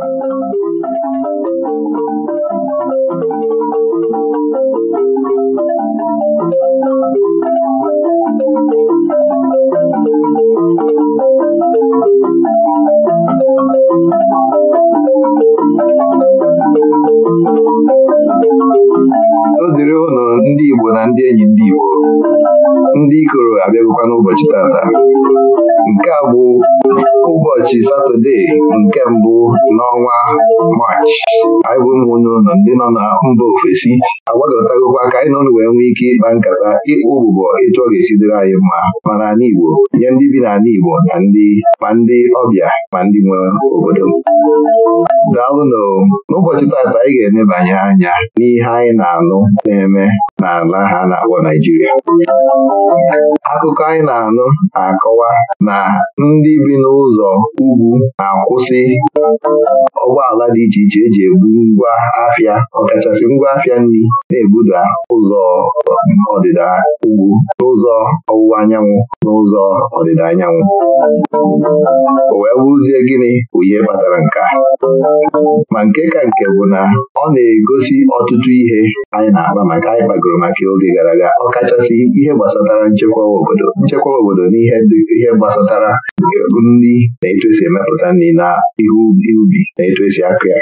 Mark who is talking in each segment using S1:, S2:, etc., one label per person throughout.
S1: Thank
S2: I wouldn't nọ na mba ofesi agbagọtagokwa ka anyị na wee nwee ike ịkpa nkata ịkpụ ụbụbọ etu ọ ga-esi dịrị anyị mma ma n'ala Igbo nye ndị bi n'ala Igbo na ndị ma ndị ọbịa ma ndị nwe obodo daalụnụ n'ụbọchị taata anyị ga emebanye anya n'ihe anyị na-anụ na-eme n'ala ha na-akpọ Naijiria akụkọ anyị na-anụ na-akọwa na ndị bi n'ụzọ ugwu na-akwụsị ụgbọala dị iche iche eji ebu ngwa ahịa ọkachasị ngwa afịa nri na-ebuda ụzọ ọdịda ugwu n'ụzọ ọwụwa anyanwụ n'ụzọ ọdịda anyanwụ o wee bụrụzie gịnị bụ ihe kpatara nke a? ma nke ka nke bụ na ọ na-egosi ọtụtụ ihe anyị na agba maka anyị kpagoro maka oge gara aga ọkachasị ihe gbasatara nchekwa obodo nchekwa obodo na ihe gbasatara nri na etu esi emepụta nri na ihe ubi na etu esi akụ ya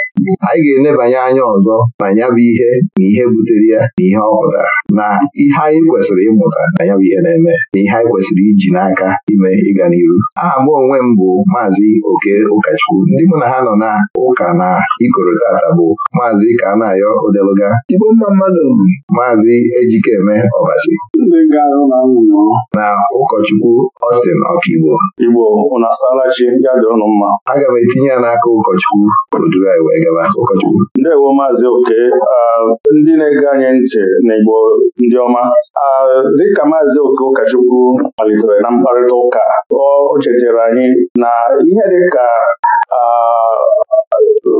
S2: anyị ga enebanye anya ọzọ na ya bụ ihe na ihe butere ya na ihe ọ pụtara na ihe anyị kwesịrị ịmụta na ya bụ ihe na-eme na ihe anyị kwesịrị iji n'aka ime ịga n'iru aha mụ onwe m bụ maazị oke ụkọchukwu ndị mụ na ha nọ na ụka na ikoro tata bụ maazị na-ayọ Odeluga maazị Ejikeme Ọbasi na ụkọchukwu Ọsin ọkaigbo Igbo aga m etinye ya n'aka ụkọchukwu o anyị wee gaba ụkọchukwu oke ndị na-ege anyị ntị na ndị ọma dịka maazị oke ụkọchukwu malitere na mkparịta ụka o chetara anyị na ihe dịka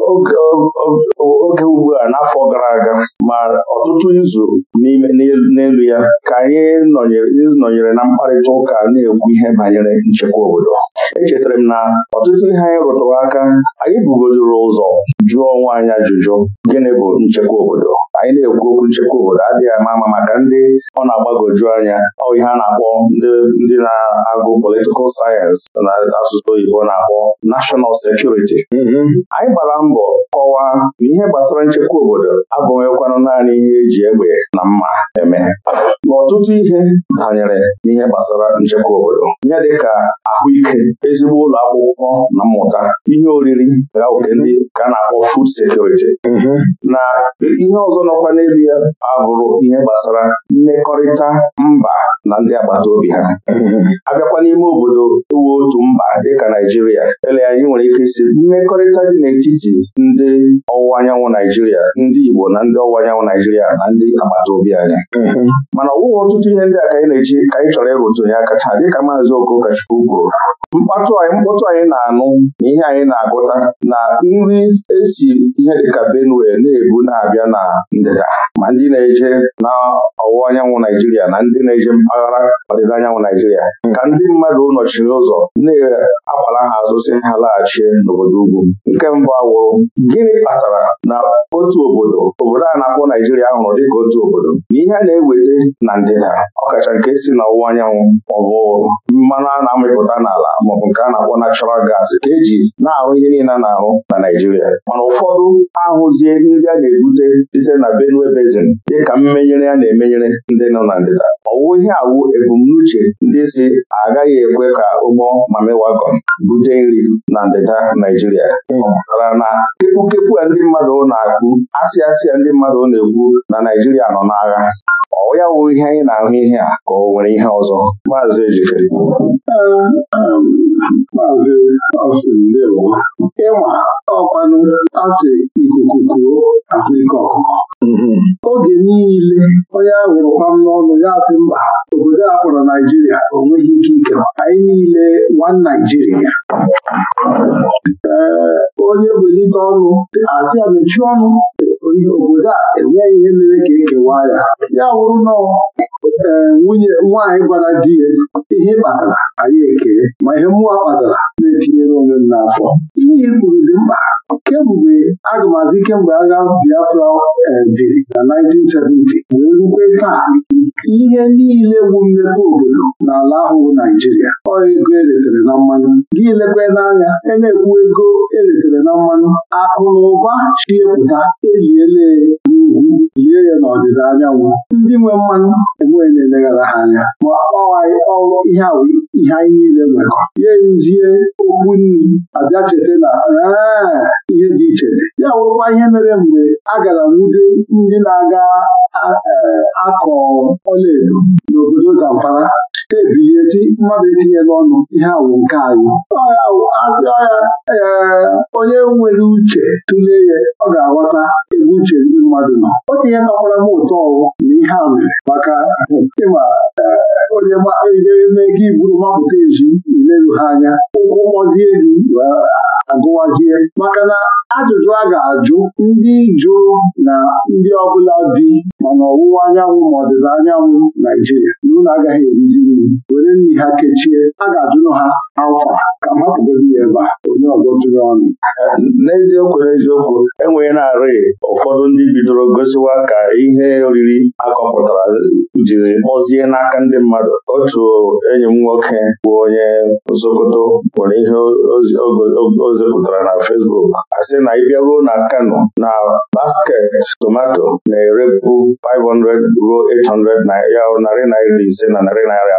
S2: oge ugbu a n'afọ gara aga ma ọtụtụ izu n'elu ya ka anyị nọnyere na mkparịta ụka na-ekwu ihe banyere nchekwa obodo echetara m na ọtụtụ ihe anyị rụtụrụ aka anyị bugodoro ụzọ jụọ onwe anyị ajụjụ gịnị bụ nchekwa obodo anyị na-ekwu okwu nchekwa obodo adịghị ama ama maka ndị ọ na-agbagoju anya ọ ihe a na-akpọ ndị na-agụ politikal sayensị na asụsụ oyibo na-akpọ nashọnal security security anyị gbara mbọ kọwaa na ihe gbasara nchekwa obodo abụghịkwanụ naanị ihe eji egbe na mma eme n'ọtụtụ ihe banyere n'ihe gbasara nchekwa obodo ihe dịka ahụike ezigbo ụlọ akwụkwọ na mmụta ihe oriri ndị ka na-akpọ food security na ihe ọzọ nọkwa n'elu ya abụrụ ihe gbasara mmekọrịta mba na ndị agbata obi ha abịakwa n'ime obodo ewu otu mba dịka Naijiria ele anyị nwere ike isi mmekọrịta dị n'etiti ndị ọwụwa anyanwụ Naijiria ndị Igbo na ndị ọwụwa anyanwụ Naijiria na ndị agbata obi anyị mhm. mana ọ ọtụtụ ihe ndị a ka anyị na-eji ka anyị chọrọ ịrụtụnye aka taa dịka maazị Okochukwu kwuru mkpatụ anyị mkpọtụ anyị na-anụ na ihe anyị na-agụta na nri esi ihe dịka Benue na-ebu na-abịa na ndịda ma ndị na-eje na ọwụwa anyanwụ Naijiria na ndị na-eje mpaghara ọdịda anyanwụ Naijiria ka ndị mmadụ nọchiri ụzọ na-akwara ha azụ si ha laghachie n'obodo ugwu nke mbụ awụrụ gịnị kpatara na otu obodo obodo a na-akpọ Naijiria hụrụ dịka otu obodo na ihe a na-eweta na ndịda ọkacha nke si n'ọwụwa anyanwụ maọbụ mmanụ a na-amịpụta n'ala maọbụ nke a na-akpọ natural gas ka eji na-ahụ ihe niile na-ahụ na Naijiria mana ụfọdụ ahụzie ndị a na-ebute site na Benue Basin dịka mmenyere a na-emenyere ndị nọ na ndịda ọwụ ihe awụ ebumnuche ndị si agaghị ekwe ka ụgbọ mamiwagọn bute nri na ndịda Naijiria Mana na kepu a ndị mmadụ na-akpụ asị ndị mmadụ na-ekwu na Naijiria nọ n'agha ọ ya wụ ihe anyị na-ahụ ihe a ka ọ nwere ihe ọzọ maazị ejikere
S3: maazị ọsị ndewo ịma ọkwanụ asị ikuku kuo ahụike ọkụkọ oge niile onye ahụrụ kpam n'ọnụ ya asị mba obodo a
S2: kpọrọ Naijiria o ike ike anyị niile nwa Naijiria ee onye welite ọnụ asị ya ọnụ ihe obodo a enweghị ihe mere ka ekewa ya ya wụrụ nnọọ nwunye nwaanyị gwara di ya ihe kpatara anyị eke ma ihe mmụọ kpatara na-etinyere onwe m
S3: n'afọ ihe kwuru dị mkpa kemgbe agụmazi kemgbe agha Biafra
S2: biri eh, na 1970 wee rukwe taa ihe niile bụ mmepe obodo n'ala ahụ bụ Naijiria ọ ego eletere na mmanụ gị lekwe n'anya a e na-ekwu ego eletere na mmanụ akụ na ụba chiepụta eliele ugwu yie ya n'ọdịda anyanwụ ndị nwe mmanụ enweghị na-eleghara ha anya ma ọwaghị ọrụ ihe anyị niile nwere ya eruzie okwu nri abịa cheta na ihe dị iche ya wụrụkwa ihe mere mgbe a gara nwude ndị na-aga akọ e, edo n'obodo Zamfara ha ebighezi mmadụ etinyela ọnụ ihe awụ nke anyị azụ agha ee onye nwere uche tụlee ya ọ ga-aghọta ebe uche ndị mmadụ nọ O ihe nọkwara m ụtọ ọwụ na ihe a nwere maka ịma onye eme gị buru mapụta ezi ileru ha anya ụkwụ kpọzie gị agụwazie maka na ajụjụ a ga-ajụ ndị jụụ na ndị ọbụla bi ma ọwụwa anyanwụ ma ọdịda anyanwụ Naijiria na ụlọ agaghị erizi nri obi onye ha kechie a ga-ajụnụ ha akwa ka m ya ebe a onye ọzọ tụrụ ọnụ n'eziokwu n'eziokwu enweghị na-arị ụfọdụ ndị bidoro gosiwa ka ihe oriri akọpụtara jiri kpọzie n'aka ndị mmadụ otu enyi m nwoke bụ onye nsokoto nwere ihe o zipụtara na Facebook asị na ị na Kano na basket tomato na-erepu 500 ruo 800 ya narị naira ise na narị naira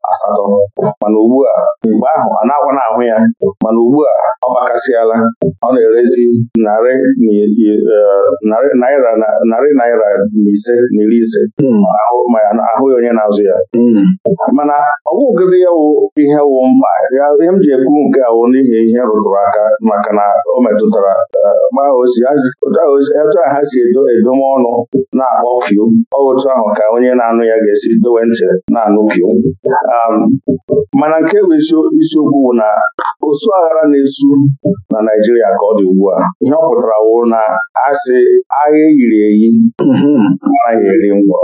S2: asatọ mana ugbu a mgbe ahụ a na-akwa na ahụ ya mana ugbu a ọ gbakasịala ọ na-erezi narị e, naira narị na ise na iri ise na-ahụ hmm. ahụghị onye na-azụ ya hmm. mana ọ bụghịgịdị ya wụ ihe wụ mma ihe m ji ekwu nke awụ n'ihi ihe rụtụrụ aka maka na o metụtara etu a ha si edo m ọnụ na-akpọ Ọ otu ahụ ka onye na-anụ ya ga-esi dowe ntị na-anụ piu Um, mana nke bụ isiokwu bụ na osu aghara na-esu na Naijiria ka ọ dị ugbu a ihe ọ pụtara wụ na asị agha eyiri eyi anaghị eri ngwọ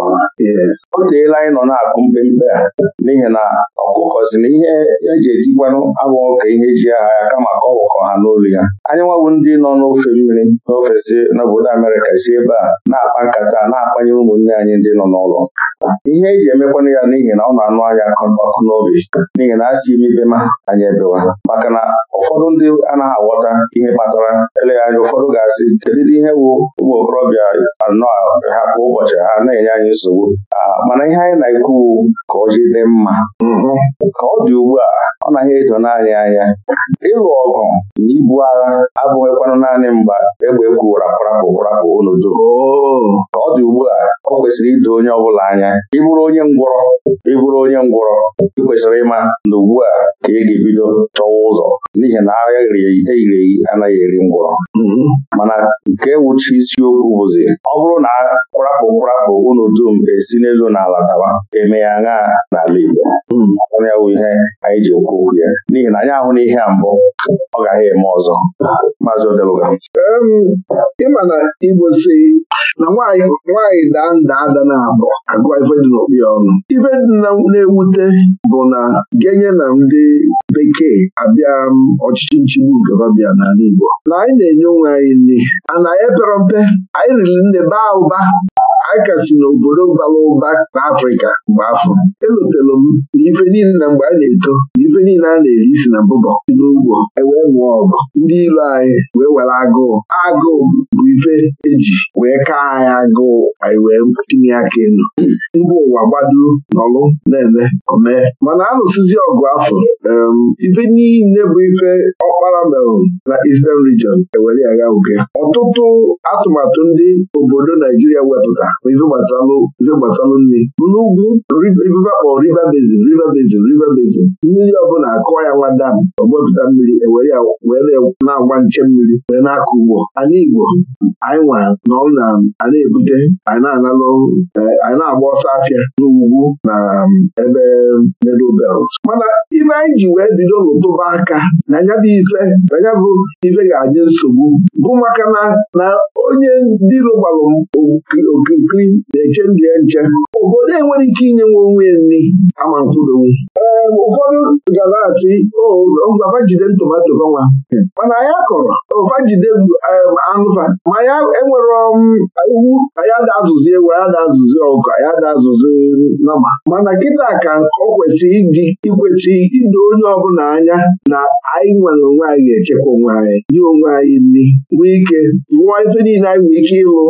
S2: o teela anyị nọ na-akụ mpempe a n'ihi na ọkụkọ si na ihe eji etikwanụ abụghị ka ihe e ji agha ya kama ka ọ wụkọ ha n'olu ya anyị nwabụ ndị nọ n'ofe mmiri n'ofe si n'obodo Amerịka si ebe a na-akpa nkata na akpanye ụmụnne anyị ndị nọ n'ụlọ ihe eji emekwanụ ya n'ihi na ọ na-anụ anya akọ ọkụ n'obi n'ihi na a si ibe ma anyị ebewa maka na ụfọdụ ndị anaghị aghọta ihe kpatara eleghị anya ụfọdụ ga-asị kedụ ihe wu ụmụ okorobịa anọ ha kwa ụbọchị ha na-enye anyị nsogbu mana ihe anyị na-ekwu ka ọ jide mma ka ọ dị ugbu a ọ naghị edo naanị anya ịlụ ọgụ na ibu agha abụghịkwanụ naanị mgba egbe ekwu rapụrapụ rapụ unu ka ọ dị ugbu a ọ kwesịrị ido onye ọ bụla anya ịbụrụ onye ngwọrọ ịbụrụ onye ngwọrọ ị kwesịrị ịma na ugbu a ka ị ga-ebido chọwa ụzọ n'ihi na agha eyiri eyi anaghị eri ngwọrọ mana nke wuchi isiokwu bụzi ọ bụrụ na kwarapụ kwarapụ unu dum esi n'elu na ala dawa eme ya n'ala Igbo ya bụ ihe anyị ji ekwu okwu ya n'ihi na anyị ahụ na ihe a mbụ ọ gaghị eme ọzọ maazị Odeluga ịma na Igbo si na nwaanyị daa nda ada na abụọ agụọ ife dị ya ọnụ ife na-ewute bụ na genye na ndị bekee abịa ọchịchị nchigbu nke n'ala Igbo na anyị na-enye onwe anyị nri ana anyị pere mpe anyị riri nne baa ụba anyị kasị n'obodo bara ụba n'Afrịka mgbe afọ elotelu m na ife niile na mgbe a na-eto ndị niile a na-eri si na mbụbọ si n'ugbo ewee nwụọ ọgụ ndị ilu anyị wee were agụụ agụụ bụ ife eji wee kaa anyị agụụ anyị wee tinye aka elu mba ụwa gbado nọlụ na-eme omee mana alụsizi lụsịzi ọgụ afọ ife niile bụ ife ọkpara merụ na Eastern Region ewere ya gha uge ọtụtụ atụmatụ ndị obodo Naijiria wepụta bụ ife gbasalụ ife gbasalụ nri n'ugwu ife akpọrọ River Basin River Basin River Basin mmiri na akụwa ya nwada m ọgbepụta mmiri ewere ya were na-agba nche mmiri wee na-akụ ugbo Anyị igbo anyị nwa nọrụ na a ebute anyị na-analụ e, anyị na-agba ọsọ afịa n'ugwu na um, ebe middle belt mana ife anyị ji wee bido n'ụtụba aka na nya bụ ife na bụ ife ga-adị nsogbu bụ maka na onye ndị lụgbalụ okirikiri na-eche ndụ ya nche obodo enwere ike inye nwe onwe nri kama mkpụrụ ụfọdụ gara atị ngwava jide ntomato gọnwa hmm. mana anyị akọrọ ofa jide eh, anụfa ma ya enwero iwu anyị ada e um, azụzi ewu anyị ada azụzi ọkụ anyị ada azụzi nama mana kịta ka ọ kwesịrị iji ikwesị ido onye ọbụla anya na anyị nwere onwe anyị ga-echekwa onwe anyị nye onwe anyị nri nwee ike rụọ ife niile anyị nwere ike ịlụ ọ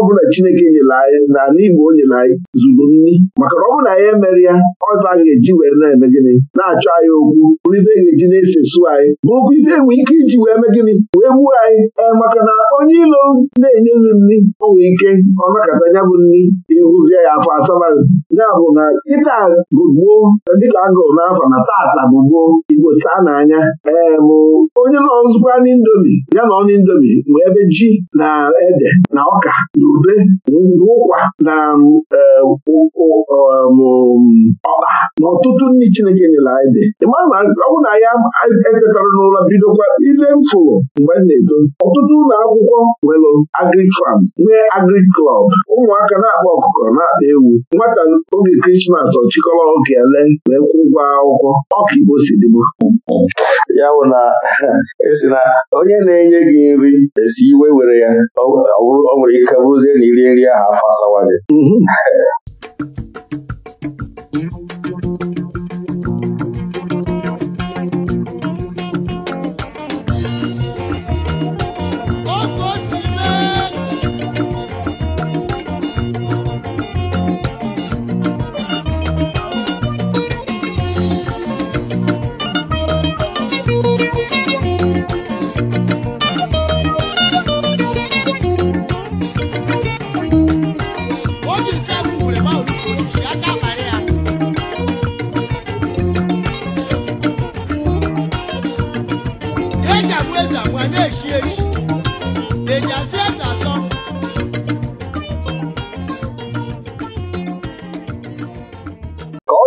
S2: ọbụla Chineke nyere anyị na n'Igbo Igbo o nyere anyị zuru nri maka na ọ bụla ya emere ya ọva a ga-eji were na-eme gịnị na-achọ na anyị okwu bụrụ ife ga-eji na-esesu anyị bụrụkwa ife enwe ike iji wee mee gịnị wee gbuo anyị ee eh, maka na onye ilo na-enyeghị nri o nwee ike ọ nakọta ya bụ nri ịhụzie ya afọ asabaghị ya bụ na ịta bụ gboo dịka agụrụ n'afọ na tata bụ igbo saa n'anya ee eh, bụ onye nọ n'indomi ya na ọnụ indomi ma ebe ji na ede na ọka na ube na ụkwa na eh, um, ọkpa na ọtụtụ nri Chineke nyere anyị dị ịma na ọ bụ na ya etetara n'ụlọ bidokwa ile fụrụ mgbe na-eto ọtụtụ ụlọ akwụkwọ nwere agrik fam nwee agrik klọb ụmụaka na-akpa ọkụkọ na-akpa ewu nwata oge krismas ọchịkọrọ oge ele wee kwụ ụgwọ akwụkwọ ọka igbo si dịbụ ya bụ na esi na onye na-enye gị nri esi iwe were ya ọ nwere ike bụrụzie na iri nri ahụ afọ asawa gị mhm.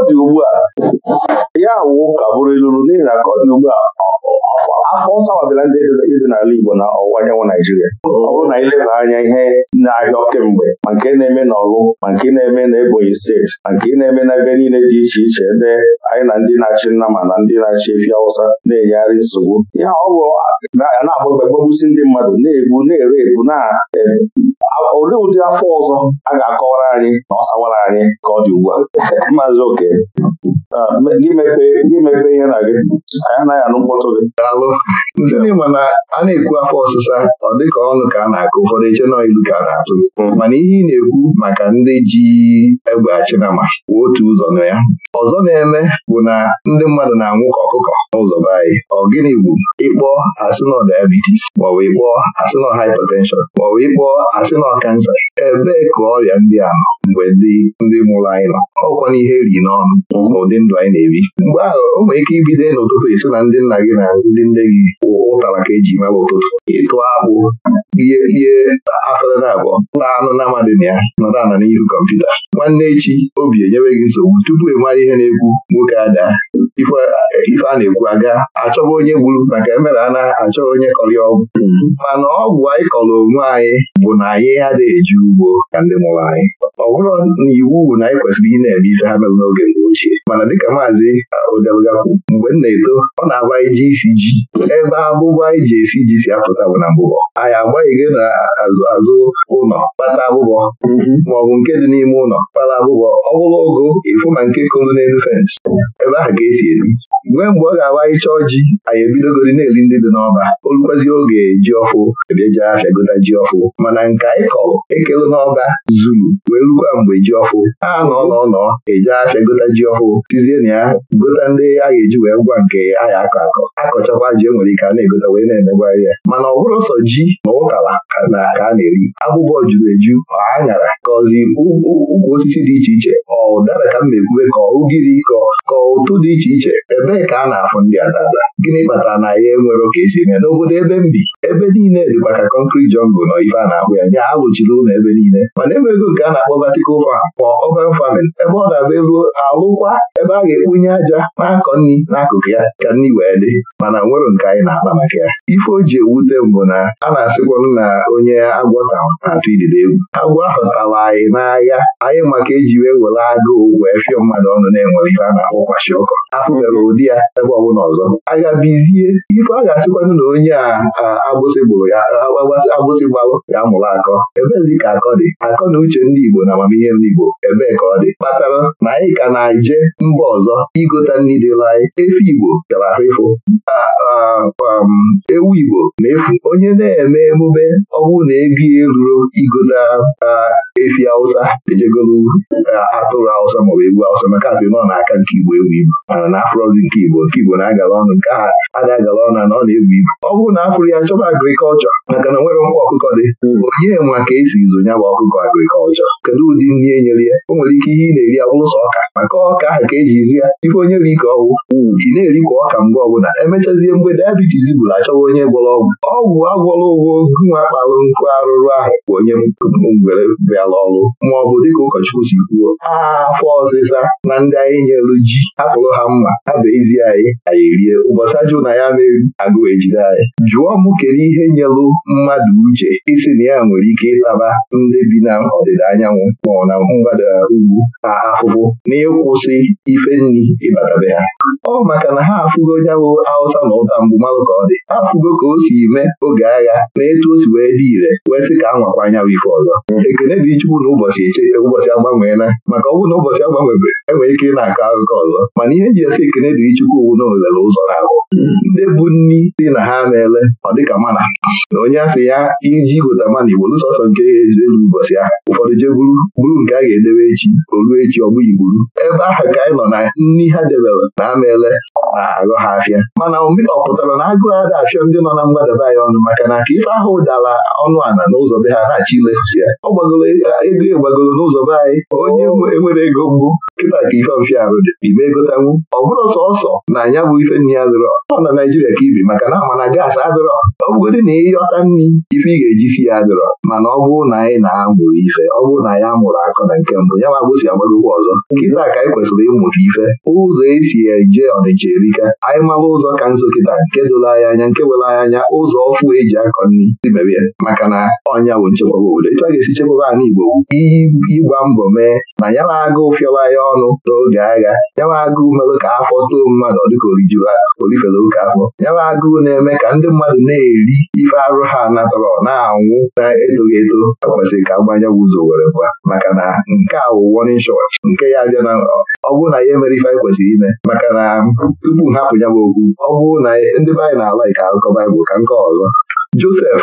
S2: dị ugbu a ya wụ ka bụrụ iluru n'ihi na ka ọ dị ugbu a afọ ọsawabịla ndị dị n'ala Igbo na ọwụwa anyanwụ Naijiria ọ bụrụ na ileba anya ihe na-ahịa kemgbe ma nke na-eme n'Ọlụ ma nke na-eme na Ebonyi steeti ma nke na-eme na ebe niile dị iche iche ebe anyị na ndị na-achị nnama na ndị na-achị efi Hausa na-enyegharị nsogbu ya ọ bụ na-agbagbagbabusi ndị mmadụ na-egbu na-ere ebu na e, olee ụdị afọ ọzọ a ga-akọwara anyị na ọ sawara anyị ka ọ dị ugbu a maazị oke a aa Ah, gị mekpe ihe na gị anyị anaghị anụ mkpọtụ gị alụ ndị ma na a na-ekwu afọ ọsịsa ọ dịka ọnụ ka a na-akụ ụfọdụ eche nọ ilu ka a na-atụ mm. mana ihe ị na-ekwu maka ndị ji egbe achinama kwuo otu ụzọ na ya ọzọ na-eme bụ na ndị mmadụ na-anwụ ka ọkụkọ n'ụzọ be anyị ọ gịnị bụ ịkpọ asịnọ diabetes maọbụ ịkpọ asịnọ hypertension maọbụ ịkpọ asịnọ kansa ebee ka ọrịa ndị a nọ mgbe ndị mụrụ anyị nọ ọkwa na ihe eri n'ọnụ n'ụdị mm. ndị ndụ anyị na-ebi mgbe ahụ o nwere ike ibido n'ụtụtụ esi na ndị nna gị na ndị nne gị ụtara ka eji mara ụtụtụ ịtụ akpụ ihe ihe afọdada abụọ na anụ na amadị na ya nọdụ na n'ihu kọmputa nwanne echi obi enyewe gị nsogbu tupu ị mara ihe na-ekwu nwoke ada ife a na-ekwu aga achọba onye gburu maka emere a na-achọ onye kọrị ọgwụ mana ọgwụ anyị kọrọ onwe anyị bụ na anyị adịghị eji ugbo ka ndị mụrụ anyị ọ bụrụ na iwu na anyị kwesịrị ị na-eme ife ha mere n'oge mgbe ochie mana dịka maazị Odebgakwu mgbe m na-eto ọ na-agba iji isi ji ebe abụba anyị e ji esi ji si apụta bụ na mbụbọ anyị agbaghịghị na azụ azụ ụlọ kpata abụbọ mhm. maọbụ nke dị n'ime ụlọ kpata abụbọ ọ bụrụ ogo ịfụ na nke kụrụ n'elu fensị ebe ahụ ka esi esi mgbe mgbe ọ ga-awa ịchọ ji anyị ebidogori na-eri ndị dị n'ọba olukwazi oge ji ọfụ ebeje afịa gota ji ọfụ e mana nke anyị kọrọ ekelu n'ọba zuru wee rukwa mgbe ji ọfụ a nọ n'ọnọ eje afịa gota ji ọfụ e tizie na ya gota ndị a ga-eji wee gwa nke anyị akọ akọ akọchakwa ji enwere ike a na-egota wee na-emegwa ya mana ọ bụrụ sọ ji na ụkala na ka a na-eri abụbọ juru eju nyara kọzi ukwu osisi dị iche iche ọ ụdara ka m na-ekwube ka ugiri kọ ka ụtụ dị iche iche ebe gịnị ka a na-afụ ndị adada gịnị kpatara na ya enwere oke esi eme n'obodo ebe m bi ebe niile dịkwa ka kọnkrit jọngụ nọ ife a na-akpụ ya nye alụchiri ụlọ ebe niile mana enwego nke a na-akpọ vertical farm ma open farming ebe ọ na-abụ ego alụkwa ebe a ga-ekpunye aja na-akọ nri n'akụkụ ya ka nri wee dị mana nwere nke anyị na-akpa maka ya ife o ji ewute mbụ na a na-asịkwanụ na onye agwọ na-atụ idide egwu agwọ ahụ anyị n'ahịa anyị maka eji wee were agụụ wee fịọ mmadụ ọnụ na-enwere ife a na-akpọ kwashi ọkọ afụbere ụdị ya ebe ọbụla ọzọ agabizie ife a ga-asịkwanụ na onye a agbụsị ya agbụsị ya mụrụ akọ ebezi ka akọ dị akọ na uche ndị Igbo na amamihe ndị Igbo ebee ka ọ dị kpatara na anyị ka na-eje mba ọzọ igota nri dịla anyị efi Igbo gara ahụ um, ewu Igbo na-efu onye na-eme emume ọgwụ na ebi eruru igota efi Hausa ejegolu atụrụ Hausa maọbụ ewu Hausa maka asị nọ n'aka nke Igbo ewu Igbo mana na afrozi nke Igbo nke Igbo na-agala ọnụ nke aha ada agala ọnụ na ọ na-ebu ibu ọ bụrụ na afụrụ ya chọba agrikọlchọ maka na nwere nkwa ọkụkọ dị hmm. onye nwa ka esi izụ nya bụ ọkụkọ agrikọlchọ kedu ụdị nri e nyere ya o nwere ike ihe ị na-eri abụrụ ọka maka ọka ahụ ka eji izi ya ife onye ri ka ọgwụ hmm. ị na eri kwa ọka mgbe ọbụla emechazie mgbe dayabitis bụrụ achọwa onye gwọrọ ọgwụ ọgwụ agwọrọ ụgwọ gụnwa kpalụ nkụ arụrụ ahụ bụ onye ngwere bịara ọrụ ma ọ dịka ụkọchukwu si kwuo aha afọ ọzịza na ndị anyị nyelu ji hapụrụ ha mma ha bee ezi anyị anyị rie ụbọchị ajụ na ya mere agụ ejide anyị jụọ mụ kedu ihe nyelụ mmadụ uche isi na ya nwere ike ịtaba ndị bi na ọdịda anyanwụ maọ na mgbada ugwu ha ahụhụ na ịkwụsị ife nri ịbatabe ha ọ maka na ha afụgo nyabụ Awụsa na ụta mgbu mmadụ ka ọ dị ha afụgo ka o si mee oge agha na etu o si wee dị ire wee sị ka a nwakwa anyanwụ ife ọzọ ekene dị chukwu na ụbọchị eche ụbọchị agbanweela maka ọ na ụbọchị agbanwebe enwere ike ịna akọ akụkọ ọzọ mana ihe ji esi ekene dị mmiri chukwu owudo oghere ụzọ na ndị bụ nni si na ha na-ele ọ dịka mana na onye asị ya iji gota mana igbo sọsọ nke elu ụbọchị ahụ ụfọdụ jee buru buru nke a ga-edebe echi o ruo echi ọ bụ igburu ebe ahụ ka anyị nọ na nni ha debere na ha na-ele na-aghọ ha afịa mana ọ pụtara na agụụ ada afịa ndị nọ na mgbadaba anyị ọnụ maka na aka ife ahụ dara ọnụ ana n'ụzọ be ha na-achọ ilefụsi ya ọ gbagoro ego egbagoro n'ụzọ be anyị onye enwere ego mbụ kịta ka ife mfịa arụ dị ibe egotanwu ọ bụrụ sọsọ na ya bụ ife nri ya dịrọ ọ na Naijiria ka ibi maka na ama na adịrọ ọ bụgodị na ịghọta nri ife ị ga-eji si ya dịrọ mana ọ bụrụ na anyị na-amụ ife ọ bụrụ na anyị mụrụ akụ na nke mbụ ya ma agbụsi agbagokwa ọzọ kịta ka anyị kwesịrị ịmụta ife ụzọ esi eje ọdịje erika anyị mara ụzọ ka nso kịta nke dụla anyị anya nke were anyị anya ụzọ ọfụ eji akọ nri imere ya maka na ọnya bụ nchekwaba obodo ịchọ ga-esi chekwaba ala Igbo ịgba mbọ mee na ya na-agụ ụfịọra ya ọnụ n'oge agha ya na-agụ merụ ka afọ too mmadụ dịka orijuru orifere oke afọ ya na-agụụ na-eme ka ndị mmadụ na-eri ife arụ ha natọrọ na-anwụ na-etoghị eto akwesịrị ka mgbanya ụzọ were gwa maka na nke a bụ nke ya abịa na ọ bụrụ na ya emere ife anyị kwesịrị ime maka na tupu hapụ ya bụ okwu ọ bụrụ na ndị be anyị na-ala ike akụkọ Baịbụl ka nke ọzọ Josef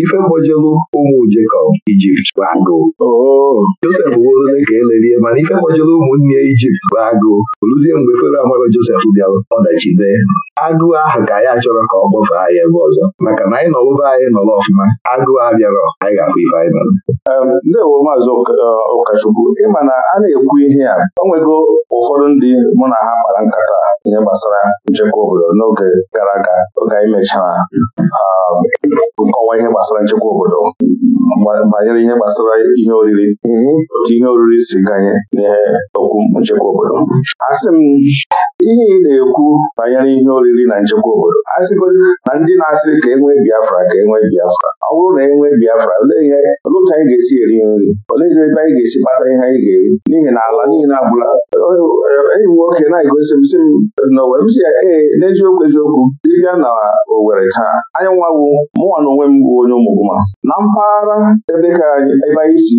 S2: ife gbojelu ụmụ Jekọb Ijipt bụ agụụ oh. Josef wooole ka elerie mana ife gbojelu ụmụnne Ijipt bụ agụụ oluzie mgbe Fero amaro Josef bịara ọdachi dee agụụ ahụ ka ya achọrọ ka ọ gbafee anyị ebe ọzọ maka na anyị nọlụba anyị nọrọ ọfụma agụụ abịarọ anyị ga-afụ ife anyị nọrọ ndewo maazị e, ụkọchukwu ịma na a na-ekwu ihe a o nwego ụfọdụ ndị mụ na ha kpara nkata ihe gbasara nchekwa obodo n'oge gara aga oge anyị mechara gbasara nchekwa obodo banyere ihe gbasara ihe oriri mhm. otu ihe oriri si ganye n'ihe okwu nchekwa obodo asị m ihe ị na-ekwu banyere ihe oriri na nchekwa obodo asịgodi na ndị na-asị ka enwee Biafra ka enwee Biafra ọ bụrụ na enwee Biafra olee ihe olee otu anyị ga-esi eri nri olee ebe anyị ga-esi kpata ihe anyị ga-eri n'ihi na ala niile abụla enyi nwoke na-egosi m si m na m si ee n'eziokwu eziokwu ịbịa na Owere taa anyanwụ mụnwa na onwe m bụ onye ụmụgwụma na mpaghara ebe ka ebe anyị si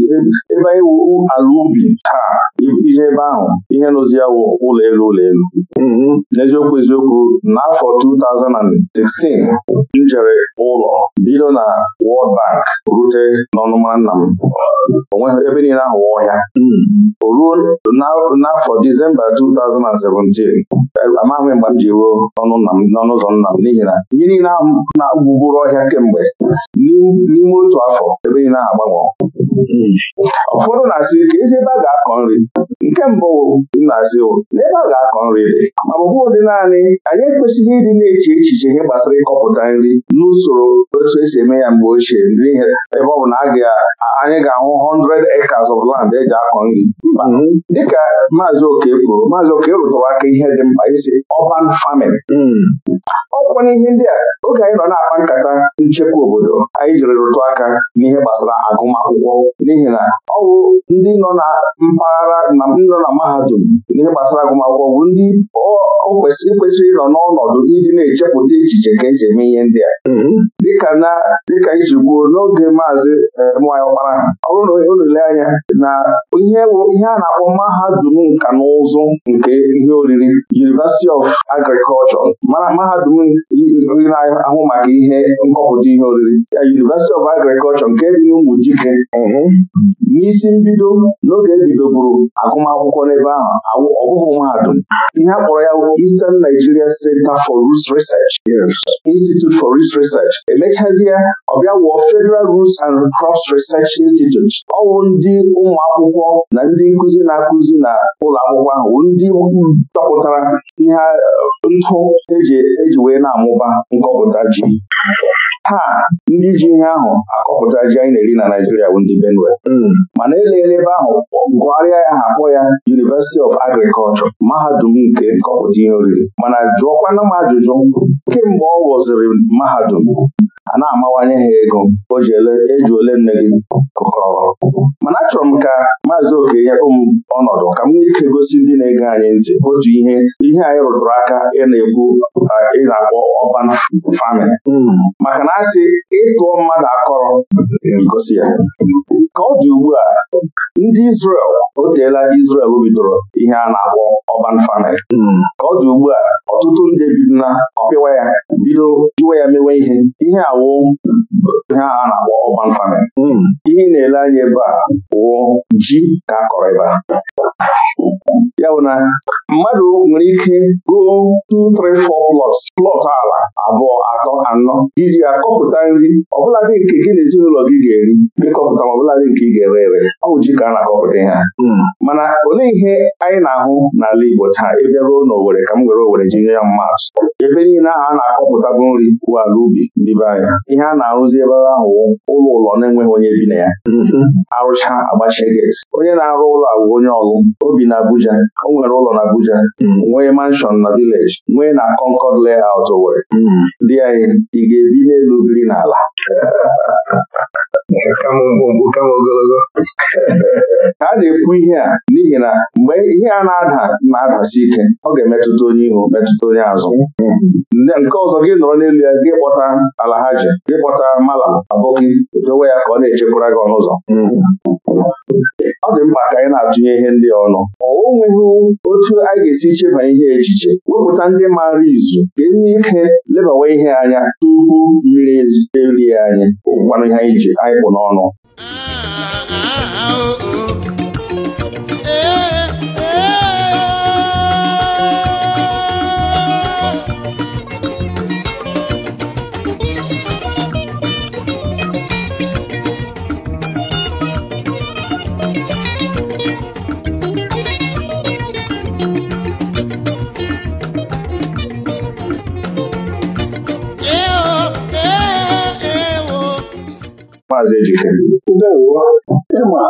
S2: ebe anyị wuru ala ubi taa ije ebe ahụ ihe nụzi ya wụ ụlọ elu ụlọ elu mm-hmm. n'eziokwu eziokwu n'afọ 2016 m jere ụlọ bido na World Bank rute n'ọnụma nna m onweghị ebe niile ahụ ọhịa mm-hmm. o ruo n'afọ Disemba 2017 amaghị mgbe m ji ruo n'ọnụ ụzọ nna m n'ihi na ihe niile ahụ na-agbugburu ọhịa kemgbe n'ime otu afọ ebe na-agbanwe
S1: ụfọdụ na-asị
S2: ka ezi ebe a ga-akọ nri Nke mbụ nnazi n'ebe a ga-akọ nri dị ma ọ ụdị naanị anyị ekwesịghị ịdị na-eche echiche ihe gbasara ịkọpụta nri n'usoro otu esi eme ya mgbe ochie n'ihi ebe ọ bụ na anyị ga-ahụ 100 acres of land eji akọ nri dịka maazị oke kwuru maazị oke rụtụrụ aka ihe dị mkpa isi ọban famin hmm. ọkwana n'ihe ndị a oge anyị nọ na-akpa nkata nchekwa obodo anyị jiri rụtụ aka n'ihe gbasara agụmakwụkwọ n'ihi na ọ bụ ndị nọ na mpaghara ndị nọ na mahadum n'ihe gbasara agụmakwụkwọ bụ ndị o kwesịrị e kwesịrị ịnọ n'ọnọdụ iji na-echepụta echiche ka esi eme ihe ndị a mm-hmm. dịka isi kwuo n'oge maazị e, nwanyị ọkpara ha ọ bụrụ na unu anya na ihe a na-akpọ mahadum nka na ụzụ nke ihe oriri University of Agriculture mana mahadum na-ahụ maka ihe nkọpụta ihe oriri ya University of Agriculture nke dị n'ụmụ dike mm-hmm. n'isi mbido n'oge ebidoburu agụmakwụkwọ nwa akwụkwọ n'ebe ahụ ọ bụghị mahadum ihe a kpọrọ ya Eastern Nigeria Center for Roots Research Institute for Roots Research emechazie ọbịa Federal Roots and Crops Research Institute ọ bụ ndị ụmụ akwụkwọ na ndị nkuzi na-akụzi na ụlọ akwụkwọ ahụ ndị dọpụtara ihe eh, ntụ eji e wee na-amụba nkọpụta ji taa ndị ji ihe ahụ akọpụta ji anyị na-eri na Naijiria bụ ndị Benue hmm. mana eleela ebe ahụ gụgharịa ya ha ya University of Agriculture mahadum nke nkọpụta ihe oriri mana jụọkwana m ajụjụ kemgbe ọ wụziri mahadum a na-amawanye ha ego o eji e ole nne gị kụkọrọ mana achọrọ m ka maazị Okenye m ọnọdụ ka m nwee ike gosi ndị na-ege anyị ntị otu ihe ihe anyị rụtụrụ aka ị na-ekwu ị na-akpọ ọban fami hmm. maka na asị ịtụọ mmadụ akọrọ e gosi ya ka ọ dị ugbu a ndị Izrel o teela Izrel bidoro ihe a na-akpọ ọban famin hmm. ka ọ dị ugbu a ọtụtụ ndị bi ọpịwa ya bido jiwa ya mewe ihe ihe a awụ ihe a na-akpọ hmm. ihe ị na-ele anya ebe a wụ ji ka akọrọ ebe a ya bụ na mmadụ nwere ike go 2 3 4 plots plọt ala abụọ atọ anọ iji akọpụta nri ọbụladị nke gị na ezinụlọ gị ga-eri kọpụta ma ọbụladị nke ị ga-ere ere ọ bụ ka a na-akọpụta ha hmm. mana olee ihe anyị na-ahụ n'ala Igbo taa ebe ruo n'Owere ka m were Owere ji nye ya mmadụ ebe niile ahụ a na-akọpụta bụ nri bụ ala ubi ndị be anya ihe a na-arụzi ebe ahụ ụlọ ụlọ na-enweghị onye bi na ya hmm. arụcha agbachie gate onye na-arụ ụlọ bụ onye ọlụ obi na Abuja o nwere ụlọ na Abuja hmm. nwee manshọn na vileji nwee na Concord layout Owerri hmm. dị anyị ị ga-ebi n'elu biri n'ala kama ogologo a na-ekwu ihe a n'ihi na mgbe ihe a na-ada na-adasi ike ọ ga-emetụta onye ihu metụta onye azụ nke ọzọ gị nọrọ n'elu ya gị kpọta alahaji gị kpọta malam aboki dowe ya ka ọ na-echekwara gị ọnụ ụzọ ọ dị mkpa ka anyị na-atụnye ihe ndị ọnụ ọ nweghị otu anyị ga-esi cheba ihe echiche wepụta ndị maara izu ka enye ike lebawa ihe anya tupu mmiri erie anyị kwanụ ihe anyị ji anyị n'ọnụ ah, ah, ah, oh, oh. Eh, Maazị Ejike. Ndewo, ịma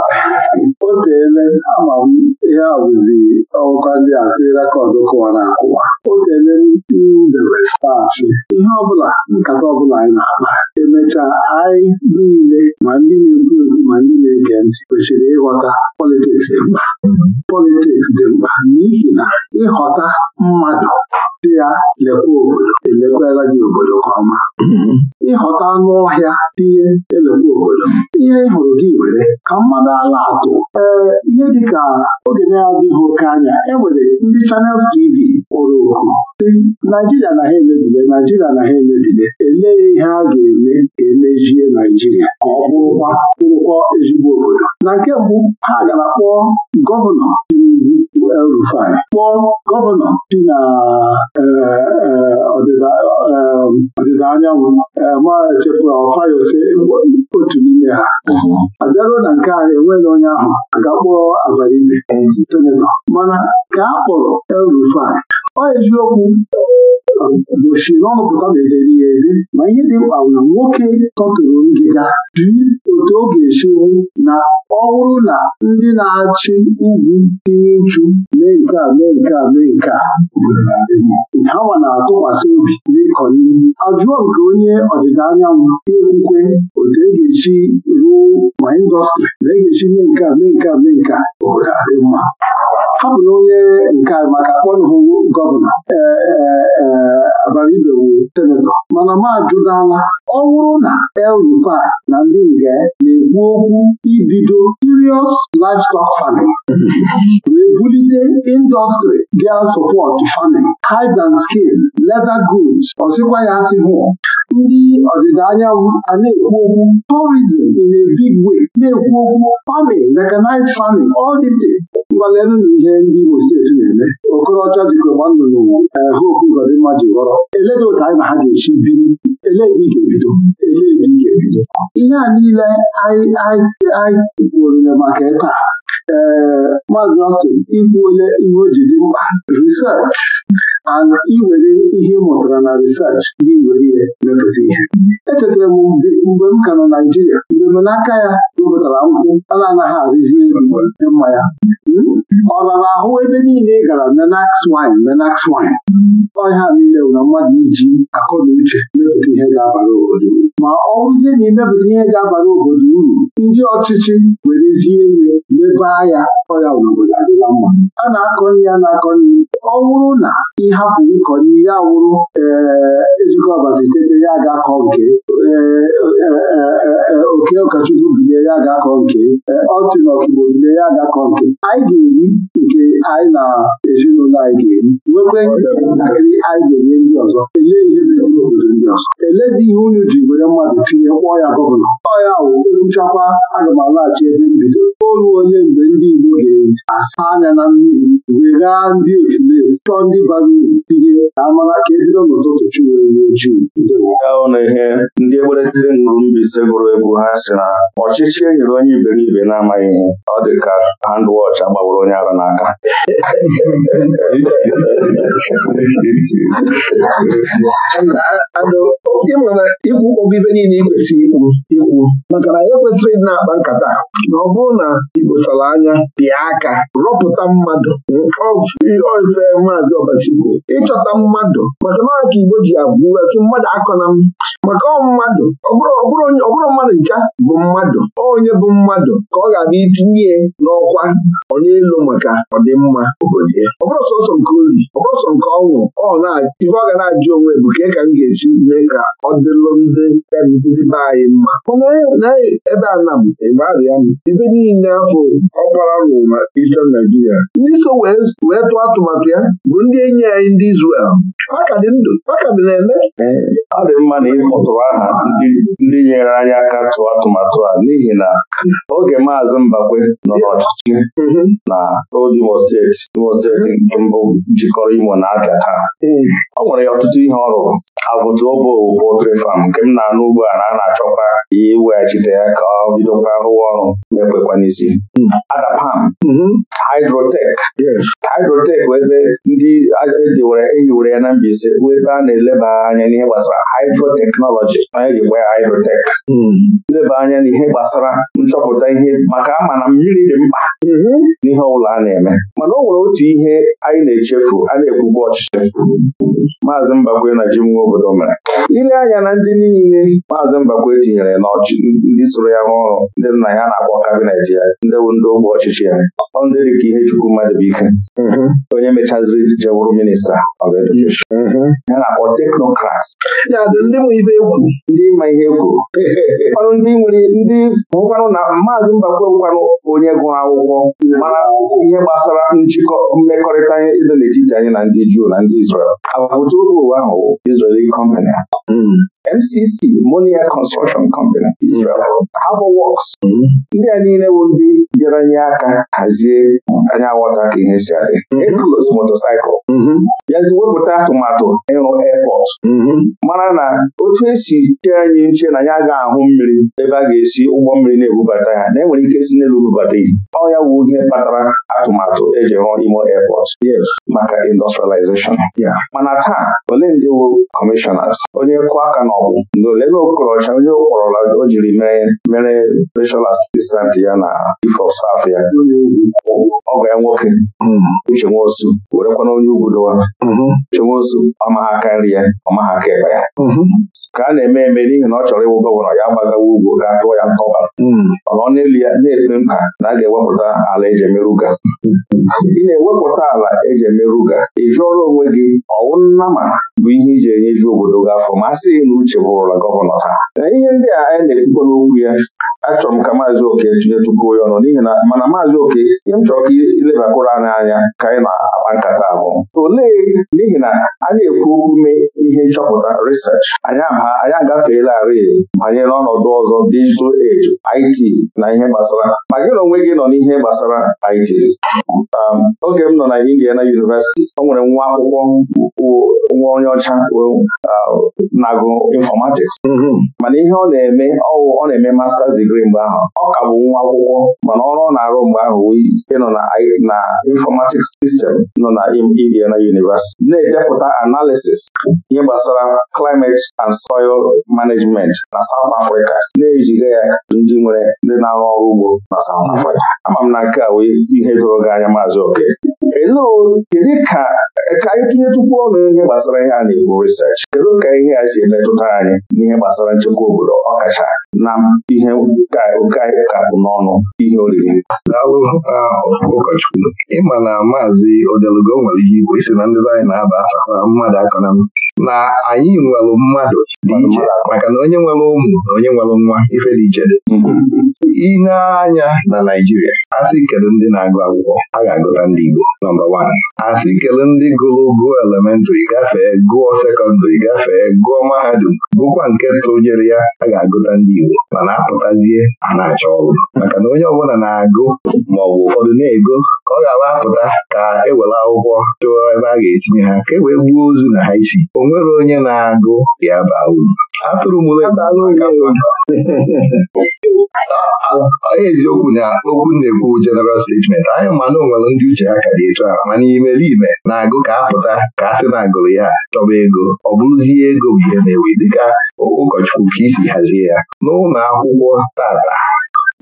S2: o teele ama m ihe awụzi ọgụkọ ndị a sị rekọdụ kụwara akụwa o teele mbere staasị ihe ọbụla nkata ọbụla anyị na-akpa emechaa anyị niile ma ndị na-ekwu ekwu ma ndị na-ege ntị kwesịrị ịghọta politiks dị mkpa politiks dị mkpa n'ihi na ịghọta
S3: mmadụ dị ya lekwa obodo elekwala gị obodo ka ọma ịghọta
S2: anụ ọhịa tinye elekwa obodo ihe e hụrụ gị were ka mmadụ ala atụ ee ihe dịka oge na-adịghị oke anya enwere ndị chanels TV kpọrọ oku si Naijiria na ha emebile Naijiria na ha emebile elee ihe a ga-eme ka emejie Naijiria ka ọ bụrụkwa bụrụkwa ezigbo obodo na nke mbụ ha gara kpọọ gọvanọ rufai kpọọ gọvanọ dị na eh, eh, eh, ọdịda anyanwụ maa echefuru Ofayose otu n'ime ha a bịaruo na nke a enweghị onye ahụ
S3: ga-akpọrọ abalị senetọ mana ka a kpọrọ El Rufai ọ
S2: eziokwu dochie n'ọnụpụta bederi ya ede ma ihe dị mkpa bụ nwoke tọtụrụ ngịga dị otu ọ ga-esiwu na ọ bụrụ na ndị na-achị ugwu tinye uchu mee nke a mee nke a mee nke a
S3: hawa na-atụkwasị obi n'ịkọ n'ihu ajụọ nke onye ọdịda anyanwụ ekwukwe otu e ga eji ruo ma indọstrị ma e ga-esi mee nke a mee nke a mee nke a obodo adị mma na onye nke maka akpọnhụ gọvanọ
S2: e, e, e, abaribe wu senetọ mana m ajụdala ọ bụrụ na el na ndị nge na-ekwu okwu ibido serious livestock farming wee bulite industry ga support farming hides and skin leather goods ọsịkwa ya asị hụ ndị ọdịda anyanwụ a na-ekwu okwu tourism in a big way na-ekwu okwu farming mechanized farming all ngwanelu na ihe ndị Imo steeti na-eme Okorocha jikọ nwannụnụ eh, Hope Uzodimma ji ghọrọ eledị ụta anyị na ha ga-esi biri eledi ga-ebido ga-ebido ihe a niile anyị kwurule maka ịta. ee eh, Maazị Austin ikwuole ihe o ji dị mkpa research ana iwere ihe mụtara na risach gị were ihe mepụta ihe echetara m mgbe m ka na Naijiria mgbe m n'aka ya wepụtara nkwụ a na-anaghị arụzi mgbe mma ya ọ rara ahụ ebe niile gara menax wine menax wine ọhịa niile na mmadụ iji akọ na uche mepụta ihe ga-abara obodo ma ọ rụzie na imepụta ihe ga-abara obodo uru ndị ọchịchị werezie ihe mebaa ya ọya obodo adịla mma a na-akọ nri a na-akọ nri ọ bụrụ na ihe hapụ ịkọ n'ihe ya wụrụ e, Ejike Ọbazi tete ya ga-akọ nke e, e, oke ụkọchukwu bile ya ga-akọ nke ọsị na ọkigbo bilie ya ga-akọ nke anyị ga-eri nke anyị na ezinụlọ anyị ga-eri nwekwe ntakịrị anyị ga-enye ndị ọzọ Elee ihe meziri obodo ndị ọzọ elezi ihe unu ji were mmadụ tinye kpọọ ya gọvanọ ọya ya wụ ekwuchakwa aga m alaghachi ebe mbido olu ole mgbe ndị Igbo ga-asa anya na mmiri weghaa ndị ofulefu chọọ ndị bara uru ihe amara ka ebido n'ụtụtụ chiwere ojii ahụ na ihe ndị egberegide ṅụrụ mbaise gụrụ egwu ha si na ọchịchị e nyere onye iberibe na-amaghị ihe ọ dị ka handwọch agbawara onye ara n'aka ịmana ikwu ogibe niile ị kwesịrị ikwu ikwu maka na ya kwesịrị ịdị na-akpa nkata na ọ bụrụ na ikposara anya bịa aka rọpụta mmadụ ọ ife maazị ọbasikwu bụ ịchọta mmadụ maka na ka Igbo ji abụrụsi mmadụ akọna m maka mmadụ bụrụ mmadụ ncha bụ mmadụ onye bụ mmadụ ka ọ ga-abịa itinye n'ọkwa onye elu maka ọdịmma obodo ya bụrụ sọsọ nke ọ bụrụ sọ nke ọnwụ ife ọ ga na-ajụ onwe bụ ka ka m ga-esi mee ka ọ dịlụ ndị ndị be anyị mma naghị e, e, ebe a na m ịgbarịa m ibe niile afọ ọkpara na ndị so wee tụọ atụmatụ ya bụ ndị enyi ya anyị ndị Izrel ha ka dị ndụ ka dị na eme ọ dị mma na ịkpọtụrụ aha ndị nyere anyị aka tụọ atụmatụ a n'ihi na oge maazị Mbakwe nọ n'ọchịchị mm-hmm. na old Imo steeti Imo steeti mbụ jikọrọ Imo na taa mm. o nwere ya ọtụtụ ihe ọ rụrụ abụtụ obo pọltrị fam nke m na-anụ ugbu a na a na-achọkwa iweghachite e ya ka ọ bidokwa rụwa ọrụ na-ekwekwa n'isi Adapam mm-hmm. hidrotek hidrotek bụ ebe ndị ehiwere e ya na Mbaise bụ ebe a na-eleba anya n'ihe gbasara hidroteknọlọji onye gwa ya hidrotek mm-hmm. Leba anya n'ihe gbasara nchọpụta ihe maka ama na mmiri dị mkpa mm-hmm. n'ihe ọbụla a na-eme mana o nwere otu ihe anyị na-echefu a na-ekwugbu ọchịchị maazị Mbakwe na Jim Nwoke obodo mere ile anya na ndị niile maazị Mbakwe tinyere na ndị soro ya rụọ ọrụ ndị nna ya na-akpọ kabinet ya ndị bụ ndị ogbe ọchịchị ya ọ ndị dị ka ihe ike. Mm-hmm. onye mechaziri jewụrụ minista mm-hmm. ya na-akpọ teknokrats ndị ma ihe ekwu ndị ma ihe ọrụ ndị nwere ndị bụkwanụ na maazị Mbakwe bụkwanụ onye gụrụ akwụkwọ mara ihe gbasara njikọ mmekọrịta dị n'etiti anyị na ndị Juu na ndị Izrel agbụtụ ụlọ ụwa ahụ MCC hmm. Monia Construction Company hmm. Israel Harbor Works hmm. ndị a niile bụ ndị bịara nye aka hazie anya aghọta ka ihe si adị motorcycle bịazi wepụta atụmatụ ịrụ airport mara na otu esi chee anyị nche na ya ga-ahụ mmiri ebe a ga-esi ụgbọ mmiri na-ebubata ya na enwere ike si n'elu bubata ihe ọ ya wu ihe kpatara atụmatụ eji rụọ Imo Airport maka industrialization mana taa ole ndị bụ kọmishọnas onye kụ aka n'ọgwụ ndị ole na onye kpọrọla o jiri mere special assistant ya na chief of staff ya ọgọ ya nwoke hmm. Uche were werekwana onye ugwudowa hmm. Uche Nwosu ọmaha nri ya ọmaha tiketi ya mhm. ka a na-eme eme n'ihi na ọ chọrọ ịwụ gọvanọ ya gbagawa ugwu ga tụọ ya ntọba mhm. ọnọ n'elu ya na-ekpe mkpa na a ga-ewepụta ala eji ị na-ewepụta ala eji emerụga ị jụọrọ onwe gị ọwụ ma bụ ihe iji ju obodo gị afọ ma a na uche bụrụla gọvanọ taa na ihe ndị a anyị na-ekwukwa n'okwu ya achọrọ m ka maazị oke tinye tupu ya ọnụ n'ihi na mana maazị oke ihe m chọrọ ka ilebakwara anyị anya ka anyị na-akpa nkata abụọ olee n'ihi na a na-ekwu okwu ihe nchọpụta chọpụta research anyị anyị agafeelarị banyere n'ọnọdụ ọzọ digital age IT na ihe gbasara ma gị na onwe gị nọ n'ihe gbasara IT um, oge m nọ na Indiana University ọ nwere nwa akwụkwọ nwa onye ọcha um, na-agụ informatics mm-hmm. mana ihe ọ na-eme ọwụ ọ na-eme masters degree mgbe ahụ ọ ka bụ nwa akwụkwọ mana ọrụ ọ na-arụ mgbe ahụ nọ na informatics system nọ na Indiana University na-edepụta analysis ihe gbasara gbasara climate and soil management na South Africa na-ejiga ya ndị nwere ndị na-arụ ọrụ ugbo na South mhm. Africa ama m na nke a wee ihe doro gị anya maazị oke kedu ka ka anyị tinye tupu ọnụ ihe gbasara ihe a na ebu research kedu ka ihe a si emetụta anyị n'ihe gbasara nchekwa obodo ọkacha na ihe ka oke n'ọnụ ihe oriri ụkọchukwu ịma na maazị odelugo nwere ihe igwe isi na ndị anyị na-aba mmadụ aka na na anyị nwere mmadụ dị iche maka na onye nwere ụmụ na onye nwere nwa ife dị iche mm-hmm. ineanya na Naijiria asị kedu ndị na-agụ akwụkwọ a ga-agụta ndị Igbo nọmba wan asị kedu ndị gụrụ gụọ elementrị gafee gụọ sekọndịrị gafee gụọ mahadum bụkwa nke tụnyere ya a ga-agụta ndị Igbo mana apụtazie a na-achọ ọrụ maka na onye ọbụla na-agụ maọbụ ụfọdụ na-ego ka ọ ghara apụta ka e were akwụkwọ chụọ ebe a ga-etinye ha ka e wee gbuo ozu na ha isi o nwere onye na-agụ ya baa uru atụrụ mụrụ onye eziokwu na okwu na-ekwu general statement anyị ma na ndị uche ha ka dị etu a mana imerime na-agụ ka apụta ka a sị na agụrụ ya chọba ego ọ bụrụzie ego bụ ihe na-ewe dịka ụkọchukwu ka isi hazie ya n'ụlọ akwụkwọ tata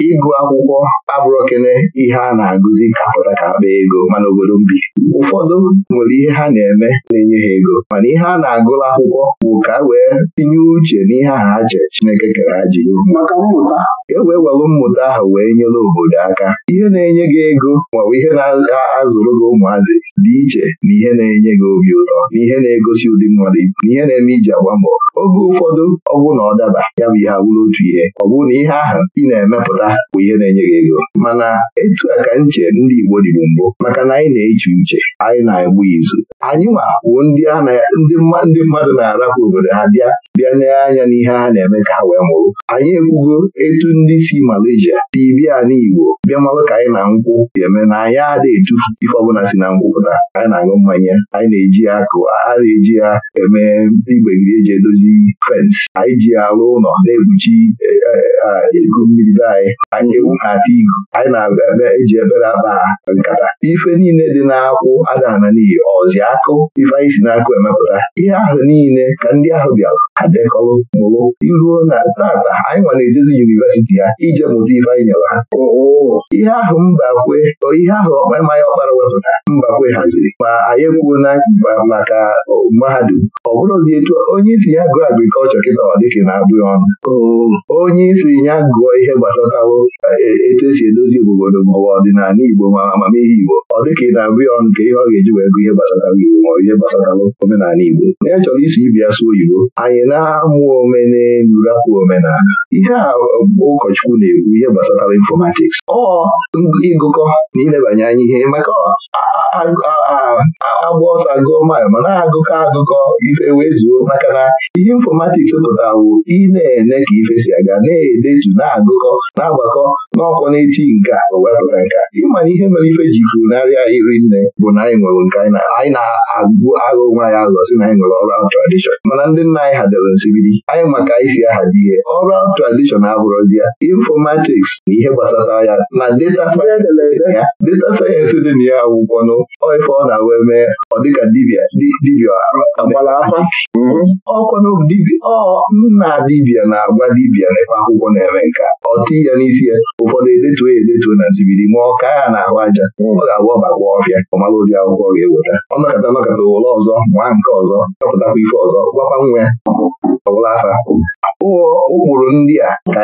S2: ịgụ akwụkwọ abụrụkene ihe a na-agụzi ka pụta ka akpa ego mana obodo mbi ụfọdụ nwere ihe ha na-eme na-enye ha ego mana ihe a na agụrụ akwụkwọ bụ ka e wee tinye uche n'ihe aha aje Chineke kere ha e wee welụ mmụta ahụ wee nyere obodo aka ihe na-enye gị ego maọbụ ihe na-azụrụ gị ụmụazị dị iche na ihe na-enye gị obi ụtọ na ihe na-egosi ụdị mmadụ ibu na ihe na-eme iji agba mbọ oge ụfọdụ ọ bụ na ọ daba ya bụ ihe abụrụ otu ihe ọ bụrụ na ihe ahụ ị na-emepụta ụra bụ ihe na-enye gị ego mana etu a ka nche ndị Igbo dịbụ mbụ maka na anyị na-eche uche anyị na-egbu izu anyị ma wuo ndị mmadụ na-arapụ obodo ha bịa bịa n'anya anya n'ihe ha na-eme ka ha wee mụrụ anyị ekwugo etu ndị si Malaysia si bịa n'Igbo bịa malụ ka anyị na nkwụ si eme na anyị ada etufu ife ọbụla si na nkwụ pụta anyị na-aṅụ mmanya anyị na-eji ya akụ a na-eji ya eme igbegiri eji edozi fensị anyị ji ya ụlọ na-ekpuchi ikuku eh, eh, eh, mmiri be anyị anyị ewu ha ata anyị na-eme eji ebere akpa nkata ife niile dị n'akwụ adana n'iyi ọzi akụ ife anyị si emepụta ihe ahụ niile ka ndị ahụ bịara adekọrọ mụrụ iruo na tata anyị nwa na-ejezi yunivesiti ya ije mụta ife anyị nyere ha ihe ahụ mbakwe ihe ahụ ịmanya ọkpara wepụta mbakwe haziri ma anyị ekwuo na maka mahadum ọ bụrụzi etu onye isi ya gụọ agrikọlchọ kịta ọ dịka na-abụghị ọnụ oh. onye isi ya gụọ ihe gbasara na-awụ etu esi edozi obodo maọbụ ọdịnala Igbo ma amamihe Igbo ọ dịka ị na-abịa ọnụ ka ihe ọ ga-eji wee gụ ihe gbasara Igbo maọbụ ihe gbasara omenala Igbo na ya chọrọ isi ibia sụ oyibo anyị na-amụ omenelu omenala ihe a ụkọchukwu na-ekwu ihe gbasara informatics ọ ịgụkọ na ilebanye anya ihe maka agba ọsọ agụọ mail ma na-agụkọ agụkọ ife wee zuo maka na ihe infọmatiks pụtara bụ ị na-ene ka ife si aga na-edetu na-agụkọ na-agbakọ n'ọkwọ na-eti nka o wepụta nka ịma na ihe mere ife ji funarịa iri nne bụ na anyị nwere nke anyị na-agụ agụ nwaanyị anyị aghọ na anyị nwere ọrụ tradishọn mana ndị nna anyị hadoro nsibidi anyị maka anyị si ahazi ihe ọrụ tradishọn abụrụzi ya infọmatiks na ihe gbasara ya na data sayensị dị na ya akwụkwọ n'oge Ọ ife ọ na-wee mee ọ dịka dibịa dibịa agbala afa mm-hmm. ọ nna dibia na-agwa dibịa n'ebe akwụkwọ na-eme nka ọ ti ya n'isi ya ụfọdụ edetuo ya edetuo na nsibiri ma ọ ka ya na-ahụ aja mm. ọ ga-agwa ọbakwa ọfịa ọmara ụdị akwụkwọ ga-eweta ọnọkọta nọkọta ụlọ ọzọ nwaa nke ọzọ chọpụtakwa ife ọzọ gwakwa nwa ya ọgbala afa ụkpụrụ ndị a ka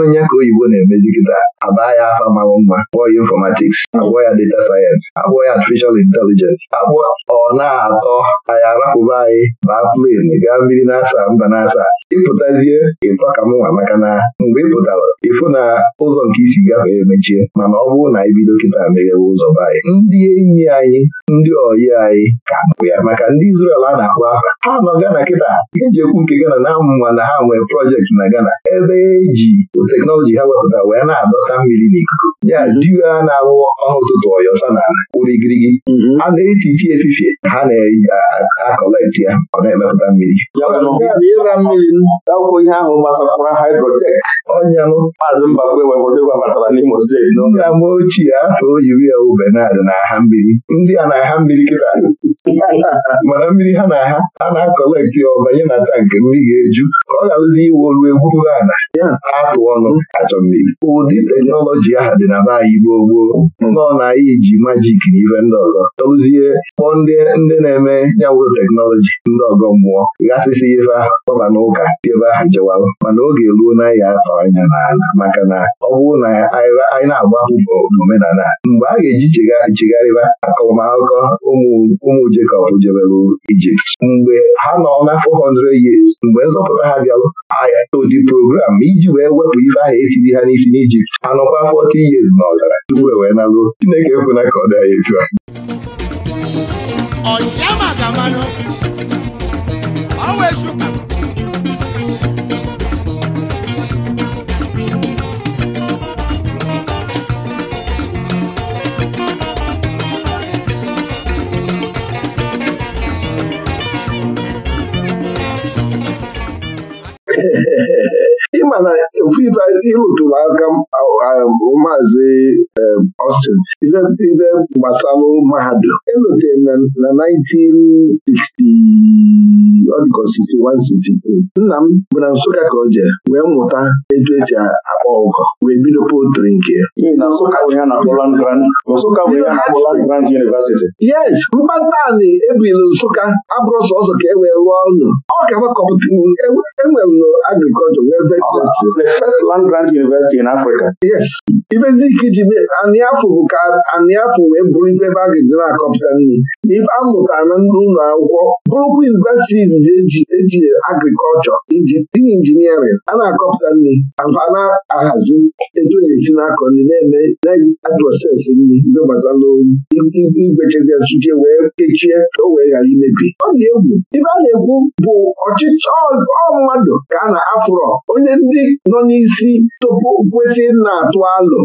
S2: anyị ka oyibo na-emezi kịta abaa ya afa mawụ mma kpọọ ya infọmatiks agwọ ya data sayensị akpọ ya artificial intelligence akpọ ọ na-atọ anyị arapụba anyị na plen gaa mmiri na-asa mba na-asa ịpụtazie ịtọ ka m nwa maka na mgbe ị pụtara ịfụ na ụzọ nke isi gafee emechie mana ọ bụrụ na anyị kịta meghewe ụzọ be anyị ndị enyi anyị ndị oyi anyị ka bụ ya maka ndị Izrel a na-akpọ aha ha nọ Gana kịta ga-eji ekwu nke Gana na-amụma na ha nwee projekti na Gana ebe eji teknọlọji ha wepụta wee na-adọta mmiri n'ikuku ya diwe a na-awụ ọha ụtụtụ ọyọsa n'ala kwụrụ igirigi a mm-hmm. na-eti iti efifie ha na-akọleti ya ọ na-emepụta mmiri ịra mmiri akwụkwọ ihe ahụ gbasakwara haidrotek ọnyanụ maazị Mbakwe webatara n'Imo steeti nna m ochie afọ o yiri ya ube na-adị n'aha mmiri ndị a na-aha mmiri kịta mana mmiri ha na ha a na-akọlekti ọbanye na tankị mmiri ga-eju ka ọ gharụzi iwe olu egwuru ala atụ ọnụ achọ mmiri ụdị teknọlọji ahụ dị na be anyị gboo gboo hmm. nọ na anyị ji majik na ife ndị ọzọ tọrụzie kpọọ ndị ndị na-eme yawụ teknọlọji ndị ọgọ mmụọ ghasịsị ife ahụ kpọba n'ụka ebe ahụ jewarụ mana oge ruo na ya atọ anya n'ala maka na ọ bụrụ na anyị na-agba akwụkwọ omenala mgbe a ga-eji chegharịba akọmakọ ụmụ Jekọb jebere Ijipt mgbe ha nọ na 400 years mgbe nzọpụta ha bịalụ odi program iji wee wepụ ife ahụ etiri ha n'isi n'Ijipt anọkwa 40 years na ọzara tupu e wee naruo Chineke ekwena ka ọ dị anyị etu a
S1: ọsịa maka ọ wee chụpụ
S2: ibe ihe ntụliaka um, maazị um, Austin ife gbasalụ mahadum elotere na 1960 nna m bụ na Nsụka ka o wee mụta etu esi akpọ ụkọ wee bido potri nke yes mkpatanị ebili Nsụka abụrụ sọsọ ka e wee rụọ ọnụ ọ ga-agbakọpụta enwere e wee Grant University in Africa. Yes. Ibezike ji anịafụ bụ ka anịafụ wee bụrụ ibe ebe a ga-eji na-akọpụta nri ife amụta na ndị ụlọ akwụkwọ bụrụkwa universities eji eji agriculture, agrikọlchọ injiniarịn a na-akọpụta nri afa na-ahazi etu na-esi na-akọ nri na-eme na-aprosesị nri mgbe gbasara igwechezi ọchịchị wee kechie o wee ghara imebi ọ dị egwu ife a na-ekwu bụ ọchịchị ọ mmadụ ka a na-afụrọ onye ndị nọ n'isi kwesị tupu kwesị na-atụ alụ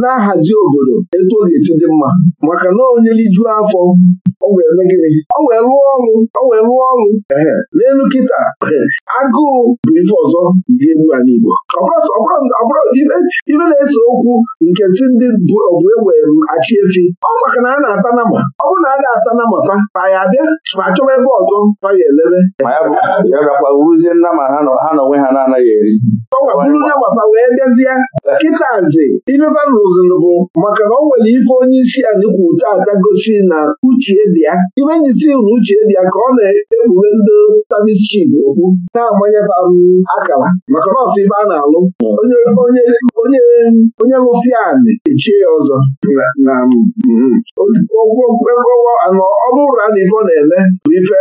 S2: na-ahazi obodo etu ọ ga-esi dị mma maka na onyeliju afọ o wee lụọ gịnị o wee lụọ ọrụ o wee lụọ ọrụ n'elu kịta agụụ bụ ife ọzọ dị egwu ala Igbo ibe na-ese okwu nke si ndị bụ ọbụ egbe achị efi ọ maka na a na-ata na ma ọ bụrụ na a na-ata na ma fa fa ya abịa ma chọba ebe ọzọ ọ ya elebe ya gakwa wuruzie nama ha na onwe ha na-anaghị eri ọ gwakwuru nama fa wee bịazie kịtazi ife bụ maka na o nwere ife onye isi anyị kwuru taata gosi na uche dị ya imenyisi rụ uche dị ya ka ọ na-ekpughe ndị savis chief okwu na-agbanyeta akara maka nọọsụ ibe a na-alụ onye lụsi anị echie ya ọzọ na anọ ọ a na na na-eme bụ ife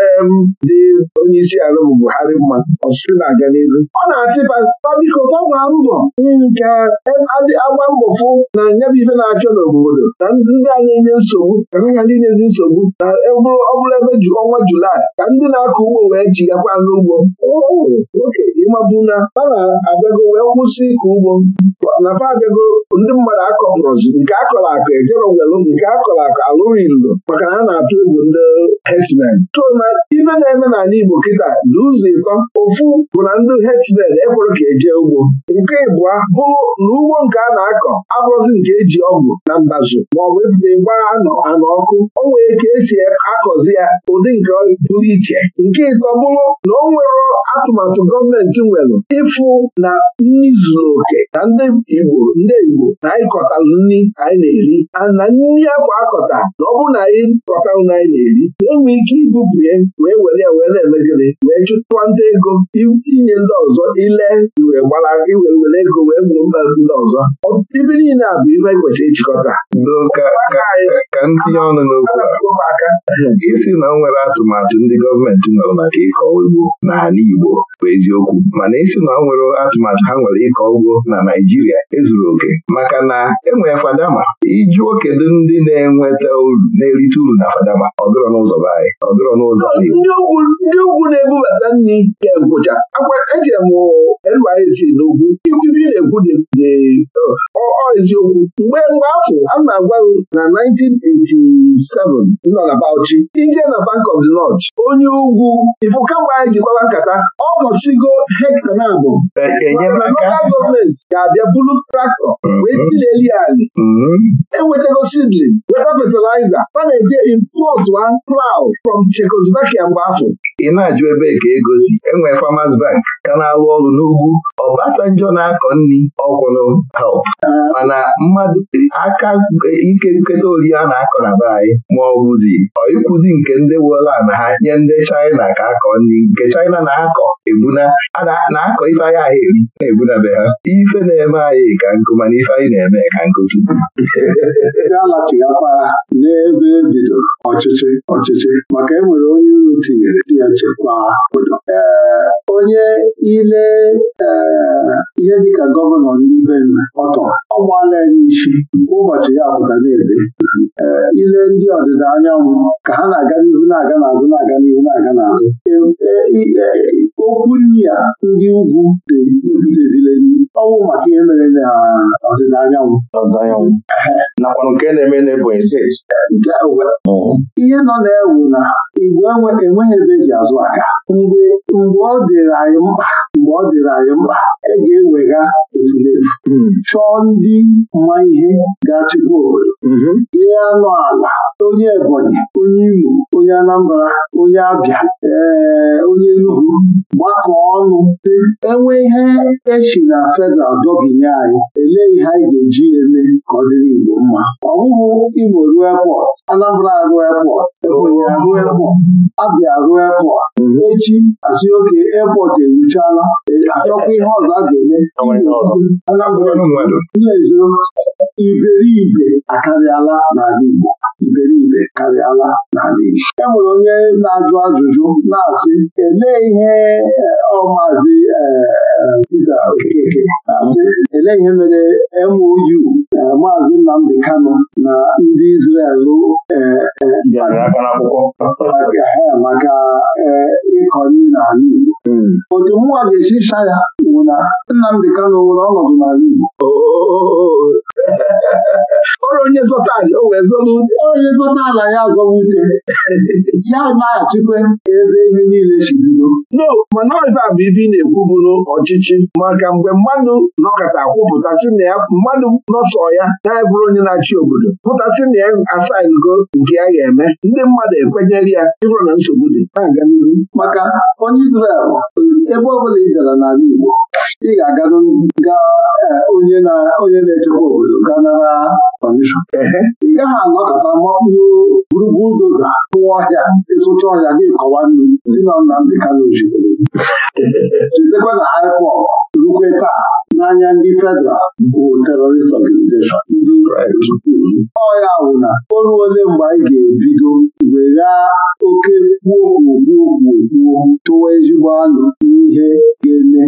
S2: dị onye isi ala bụ Buhari mma ọsụsụ na-aga n'ihu ọ na-asị pabiko fọgwa mbọ ka e, agba mbọ fụ na nyabụ ife na-achọ n'obodo na ndị a na-enye nsogbu ka ha ghara inyezi nsogbu na eburu ebe ọnwa julaị ka ndị na-akọ ugbo wee jigakwa n'ugbo oh, ịmabụ na a na-abịago wee kwụsị ịkọ ugbo na fa abịago ndị mmadụ akọpụrụzi nke akọrọ akọ ejerowelụ nke akọrọ akọ alụrụ ilu maka na a na-atụ egwu ndị herdsmen so na ibe na-eme n'ala Igbo kịta dị ụzọ ịtọ ofu bụ na ndị herdsmen ekwere ka eje ugbo nke ịbụa bụrụ na ugbo nke a na-akọ abụrụzi nke eji ọgwụ na mbazụ maọbụ e ịgbaa anọ anọ ọkụ o nwere ka esi si akọzi ya ụdị nke pụrụ iche nke ịtọ bụrụ na ọ nwere atụmatụ gọọmenti nwere ịfụ na nri zuru oke na ndị Igbo ndị Igbo na anyị kọtalụ nri anyị na-eri na nri akwa akọta na ọ bụrụ na anyị kọtalụ na anyị na-eri enwe ike ibupụ wee were ya wee na wee chụtụwa ndị ego inye ndị ọzọ ile wee gbara iwe were ego wee gbuo mba ndị ọzọ ọtụtụ ibe niile a bụ ife e kwesịrị ịchịkọta ka ndị ọnụ n'okwu aka isi na nwere atụmatụ ndị gọọmenti nwere maka ịkọ ugbo n'ala Igbo bụ eziokwu mana isi na ọ nwere atụmatụ ha nwere ịkọ ugbo na Naijiria ezuru oke maka na enwere fadama iji kedu ndị na-enweta uru na-erite uru na fadama ọ n'ụzọ anyị n'ụzọ ndị ugwu na-ebubata nri ezi n'okwu ikwubi na-ekwu dị eziokwu mgbe mgbe afọ a na-agwa na 1987 nọ na Bauchi ije na Bank of the onye ugwu ifụ kamgbe anyị jikwara nkata ọ bọchigo hekta e, na abụ lokal gọọmenti ga-abịa bulu traktọ mm-hmm. wee tileli ali mm-hmm. enwetago sidlin weta fatịlaịza a na-eje import one plow from Czechoslovakia mgbe afọ ị na-ajụ ebe ka ego si enwee Farmers Bank ka na-alụ ọrụ n'ugwu ọbasanjọ na-akọ nri ọgwụnụ help mana mmadụ aka ike nketa ori a na-akọ na be anyị ma ọ bụzi ọịkwụzi nke ndị woland ha nye ndị China ka akọ nri nke China na-akọ ebuna na-akọ ife anyị ahụ eri na-ebuna be ha ife na-eme anyị ka nkụ mana ife anyị na-eme ka nkụ tupu ya lachighakwa n'ebe ebido ọchịchị ọchịchị maka enwere onye uru tinyere di ya chekwaa obodo onye ile eh, ihe dịka gọvanọ ndị be ọtọ ọ gbaala ya n'isi ụbọchị ya pụta na-ede eh, ile ndị ọdịda anyanwụ ka ha na-aga n'ihu na-aga n'azụ na-aga n'ihu na-aga n'azụ eh, okwu nri ya ndị ugwu deziri ọnwụ maka ihe mere na ọdịda anyanwụ nakwa nke na-eme n'Ebonyi steeti ihe nọ na-ewu na igwe enweghị ebe eji azụ aka mgbe ọ dị dịrị anyị mkpa mgbe ọ dịrị anyị mkpa e ga-ewega efulefu hmm. chọọ ndị ma ihe ga-achịkwa obodo mm-hmm. ihe anụ ala onye Ebonyi onye Imo onye Anambra onye Abịa ee onye enugwu gbakọ ọnụ enwe ihe echi na feda dọbinye anyị elee ihe anyị ga-eji eme ka ọ Igbo mma ọ bụghị Imo ruo epọt Anambra ruo epọt Ebonyi ruo epọt Abia ruo epọt echi asị oke epọt eruchala e, achọkwa ihe ọzọ a ga-eme Anambra na iberibe akarịala n'ala Igbo iberibe karịala n'ala e nwere onye na-ajụ ajụjụ na-asị elee ihe eh, ọmazi eh, eh, Pita Okeke na-asị elee ihe mere MOU maazị Nnamdi Kano na ndị Izrel maka ịkọ nri n'ala Igbo hmm. otu mụnwa ga esi ịcha ya bụ na Nnamdi Kano nwere ọnọdụ n'ala Igbo oh, oh, oh, ọrụ onye zọta ala o wee zọba ute onye zọta ala ya zọba ute ya naghachikwa ebe ihe niile si bido no mana ife a bụ ife ị na-ekwu ọchịchị maka mgbe mmadụ nọkọta kwupụtasị na ya mmadụ nọsọ ya na-ebụrụ onye na-achị obodo pụtasị na ya asaingo nke ya ga-eme ndị mmadụ ekwenyere ya ịhụrụ na nsogbu dị na-aga n'ihu maka onye Izrel ebe ọ bụla ị gara n'ala Igbo ị ga-aga eh, onye na-echekwa obodo gaa nara kọmishọn ị gaghị anọkọta makpuo doza tụwa ọhịa ịsụcha ọhịa gị kọwa nnu si na Nnamdị Kanụ chetakwa na haipọ rukwe taa n'anya ndị federal bụ terrorist organization ndị ọ ya bụ na o mgbe anyị ga-ebido weghaa oke kwuogwuogwuogwuo tụwa ezigbo anụ n'ihe ga-eme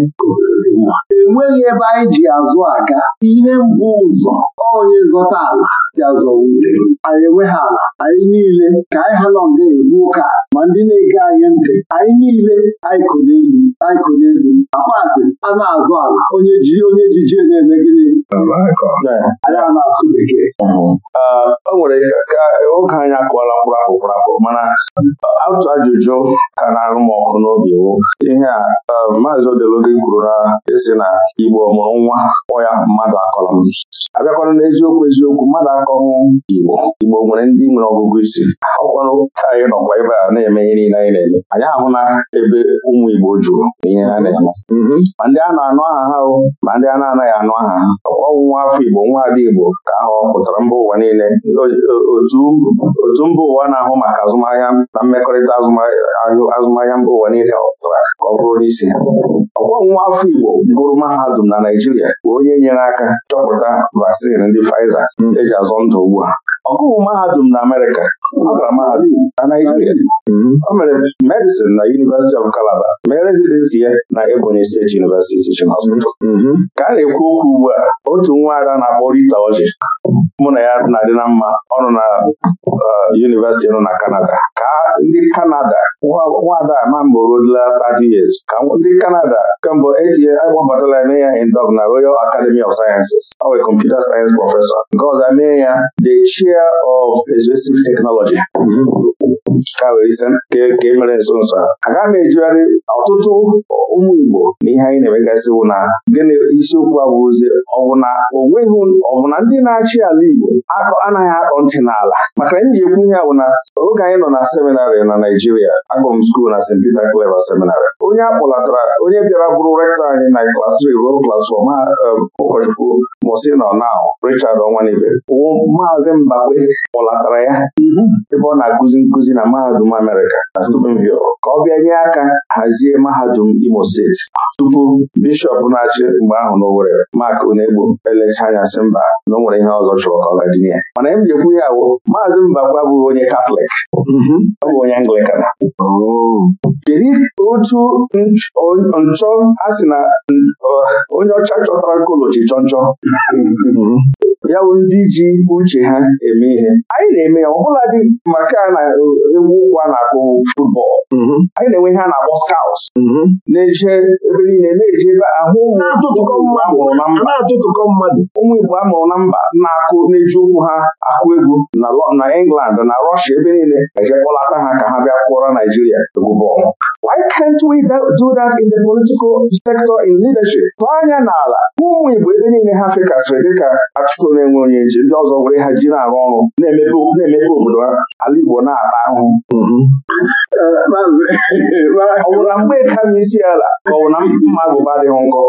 S2: enweghị ebe anyị ji azụ aga ihe mbụ ụzọ onye zọta ala ya zọwa ute anyị enweghị ala anyị niile ka anyị ha nọ nga egbu ụka ma ndị na-ege anyị ntị anyị niile anyị ko n'elu anyị ko n'elu akpaazị a na-azụ ala onye ji onye jijie na-eme gịnị anyị a na-asụ bekee o nwere ka oge anyị akụọla kwụrụ akụ kwụrụ mana otu ajụjụ ka na-arụ m ọkụ n'obi wo ihe a um, maazị odeloge kwuru na esi na Igbo mụrụ nwa ọ ya mmadụ akọrọ. m abịakwana n'eziokwu eziokwu mmadụ akọwụ Igbo Igbo nwere ndị nwere ọgụgụ isi ọkwanụ ka anyị nọkwa ebe a na-eme ihe niile anyị na-eme anyị ahụ na ebe ụmụ Igbo jụrụ na ihe ha na-eme mhm. ma ndị a na-anụ aha ha o ma ndị a na-anaghị anụ aha ha ọnwụnwa afọ Igbo nwa ada Igbo ka ahụ pụtara mba ụwa niile otu mba ụwa na-ahụ maka azụmahịa na mmekọrịta azụmahịa mba ụwa niile ọpụtara ka ọ bụrụ n'isi ọkwọnwa afọ Igbo gụrụ mahadum na Naijiria bụ onye nyere aka chọpụta vaccine ndị Pfizer mhm. eji azụ ndụ ugbu a. Ọgụgụ mahadum na Amerịka ọ na Naijiria o mere medicine na University of Calabar mee residency ya na Ebonyi State University Teaching Hospital ka a na-ekwu okwu ugbu a otu nwa ara na-akpọ Rita Oji mụ na ya na-adị na mma ọnụ na University nọ na Canada ka ndị Canada nwada amamboroola 30 years ka ndị Canada kemgbe etinye akpọbatala eme ya indọg na Royal Academy of Sciences ọ wee computer science professor nke ọzọ mee ya the chair of expressive technology teknọlọji ka wee ise ka emere e nso nso a agaghị m ejigharị ọtụtụ ụmụ Igbo na ihe anyị na-emegasị wụ na gịnị isiokwu abụzi ọwụ na onweghị ọbụna ndị na-achị ala Igbo anaghị akpọ ntị n'ala maka na ji ekwu ihe bụ na oge anyị nọ na seminarị na Naijiria akpọm skuul na St. Peter Clever seminarị onye akpọlatara onye bịara bụrụ rektọ anyị na klas 3 ruo klas 4 ma um, ụkọchukwu mụsị nọ na Richard Ọnwanibe wụ maazị Mbakwe kpọlatara ya ebe ọ na-akụzi nkụzi na mahadum Amerịka na Steubenville ka ọ bịa nye aka hazie mahadum Imo steeti tupu bishọp na-achị mgbe ahụ n'Owerri Mark Onegbu elecha anya sị mba na o nwere ihe ọzọ chọrọ ka ọ gaji ya mana m jekwu ya awụ maazị Mbakwe abụghị onye Katọlik mhm. ọ bụ onye Anglikan oh. kedu otu nchọ a sị na onye ọcha chọtara nkolochi chọnchọ ya bụ ndị ji uche ha eme ihe anyị na-eme ya ọbụla dị maka na e, egwu ụkwụ a na-akpọ futbọọlụ mhm. anyị na-enwe ihe a na-akpọ mhm. na-eje ebe niile na-eje ebe ahụ na mmadụ ụmụ Igbo a mụrụ na mba na-akụ na-eji ụkwụ ha akụ egwu na England na Russia ebe niile eje kpọlata ha ka ha bịa kụọrọ Naijiria egwu bọọlụ Why can't we do that in the political sector in leadership? Tụọ anya n'ala ụmụ Igbo ebe niile ha fekasịrị dịka achụchụ na-enwe onye njem ndị ọzọ were ha ji na-arụ ọrụ na-emepe obodo ala Igbo na-ata ahụhụ ọ bụ na mgbe ka m isi ala ka ọ na mma agụba adịghị nkọ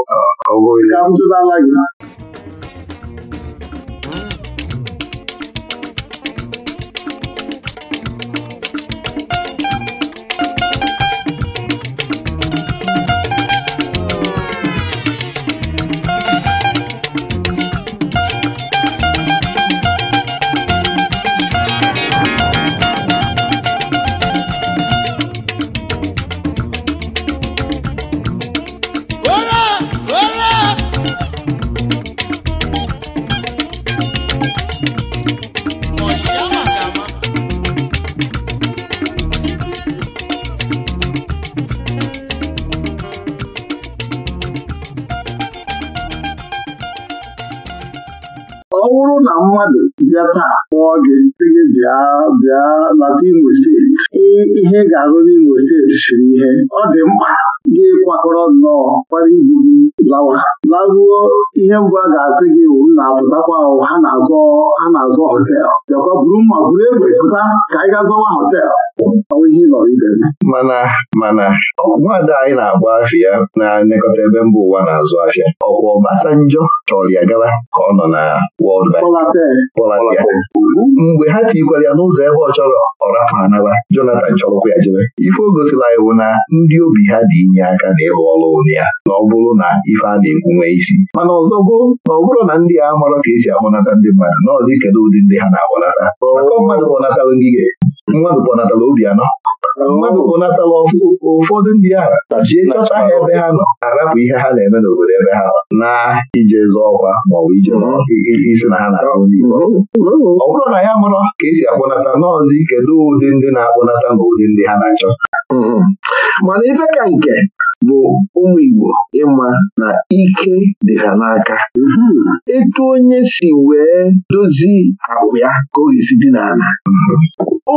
S2: bịa taa kpọọ gị sị bịa bịa lata Imo steeti ihe ga-arụ n'Imo steeti siri ihe ọ dị mkpa gị kwakọrọ nnọọ kwara ibu gị lawa laruo ihe mbụ a ga-asị gị wu na apụtakwa ha na-azọ ha na-azọ họtel bịakwa buru mma buru egbe pụta ka anyị ga azọwa họtel ihe ịlọrọ ibe mana mana nwaada anyị na-agba afịa na anekọta ebe mba ụwa na-azụ afịa ọkwa ọbasa njọ chọrọ ya gaba ka ọ nọ na World Bank mgbe ha tikwara ya n'ụzọ ebe ọ chọrọ ọ rapụ ha naba lara chọrọkwa ya jere. ife o gosila iwu na ndị obi ha dị inye aka na ịrụ ọrụ ụlọ ya na ọ bụrụ na ife a na-ekwu nwee isi mana ọzọ gboo na ọ bụrụ na ndị a marọ ka esi ahụnata ndị mmadụ nọọzụ kedu ụdị ndị ha na-ahụnata akọ mmadụ mmadụ kpọnatala obi anọ mmadụ kpọnatala ụfọdụ ndị a jie chọta ha ebe ha nọ arapụ ihe ha na-eme n'obodo ebe ha nọ na ije zọ ọkwa maọbụ ije mm-hmm. isi na ha na-akpụ mm-hmm. mm-hmm. ọ bụrụ na ya mụrụ ka esi akpọnata n'ọzi kedu ụdị ndị na-akpọnata na ụdị ndị ha na-achọ mana ife ka nke bụ ụmụ Igbo ịma na ike dị ha n'aka mhm. etu onye si wee dozie akwụ ya ka ọ ga-esi dị n'ala